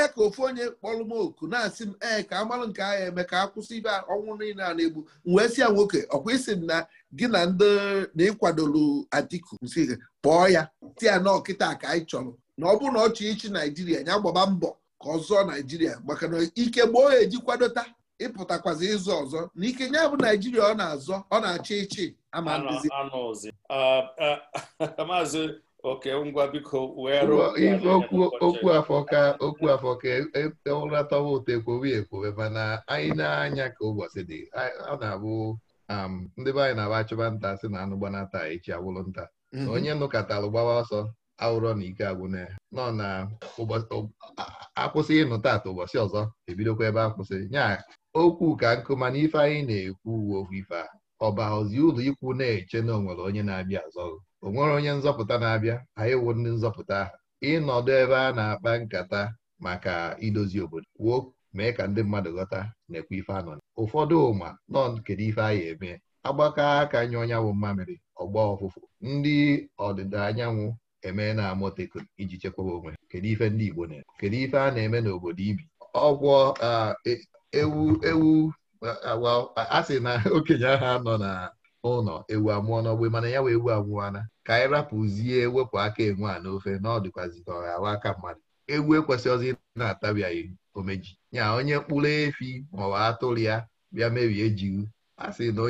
Speaker 2: ya ka ofu onye kpọrọ m oku na-asị m ee ka amalụ nke agha eme ka akwụsị ibe ọnwụ niile a na-egbu wee si ya nwoke ọkwa isi na gị na ndị na ịkwadolu Atiku nsi kpọọ ya ti ya na ọkịta ka anyị chọrọ na ọ bụrụ na ọ chọọ Naijiria ya gbaba mbọ ka ọ zụọ Naijiria maka na ike gboo ya eji kwadota ịpụtakwazi ịzụ ọzọ na ike ya bụ naijiria
Speaker 3: ọ na-azọ ọ na-achị ịchị ama ndizi uh, uh, [LAUGHS] maazị oke ngwa biko okwu
Speaker 1: afọka okwu afọka e, e, e, ụratọwa ụtọ ekwowe ekwowe mana anyị na-anya ka ụbọchị dị ọ na-abụ um, ndị be anyị na-aba achụba nta si na anụ gbanata echi agwụrụ nta mhm. onye nụkọtara gbawa ọsọ awụrọ na ike agwụna nọ na akwụsị ịnụ taata ụbọchị ọzọ ebidokwa ebe akwụsị nya okwu ka nkụma ife anyị na-ekwu uwe okwu ife a ozi ụlọ ikwu na-eche na onwere onye na-abịa azọghị o nwere onye nzọpụta na-abịa anyị wụ ndị nzọpụta ahụ ịnọdụ ebe a na-akpa nkata maka idozi obodo kwuo mee ka ndị mmadụ ghọta na-ekwu ife anọ ụfọdụ ụma nọ kedu ife anyị eme agbakọ aka nye ọnyanwụ mmamịrị ọgba ọfụfụ ndị ọdịda anyanwụ eme na-amụteko iji chekwaba onwe kedu ife ndị Igbo na-eme kedu ife a na-eme n'obodo ibi ọgwọ e, ewu ewu a uh, sị na [LAUGHS] okenye ahụ nọ na ụlọ ewu amụọ n'ogbe mana ya wee ewu amụọna ka anyị rapụzie wepụ aka enwe a n'ofe na ọ dịkwazị ka ghawa aka mmadụ ewu ekwesịghịzi na-atabiaghị omeji ya onye mkpụrụ efi maọbụ atụrụ ya bịa mebie ejighị a sị na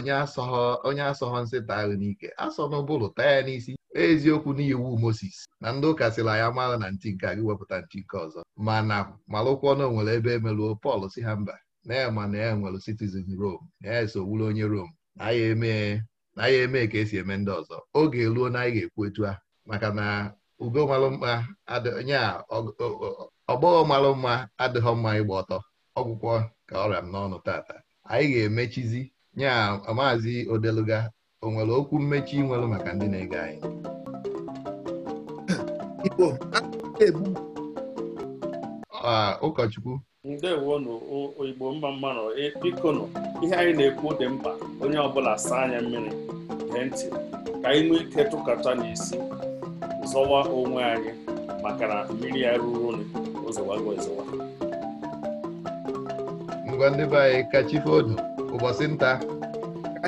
Speaker 1: onye asọghọ nsịta ahụ n'ike asọ n'ụbụrụ taa ya n'isi eziokwu n'iwu Moses na ndị ụka sịrị ya amaghị na ntị nke gị wepụta ntị nke ọzọ mana malụkwọ na o nwere ebe emeluo Pọl si ha mba na-ama na ya nwere citizen Rome na ya so wuru onye Rome na ya eme ka esi eme ndị ọzọ oge eruo na anyị ga-ekwu etu a maka na ugo malụ mma nya ọgbọghọ malụ mma adịghọ mma ịgba ọtọ ọgwụkwọ ka ọrịa m n'ọnụ tata anyị ga-emechizi nya maazị odeluga o nwere okwu mmechi nwere maka ndị na-ege anyị ah, ụkọchukwu
Speaker 3: ndewonụ igbo mma mmanụ e, bikonụ ihe anyị na-ekwu dị mkpa onye ọbụla saa anya mmiri gee ntị ka anyị nwee ike tụkọta n'isi zọwa onwe anyị maka na mmiri ya ruru ụzọwago ezọwa
Speaker 1: ngwa ndị be anyị kachife ụbọchị nta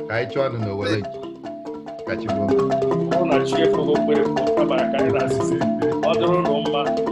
Speaker 1: ka anyị chụọ nụ n'owere kachife odo ọ na chi efogo mkpere pụ kabara
Speaker 3: karịrị asịsị ọ dịrụ ụlọ mma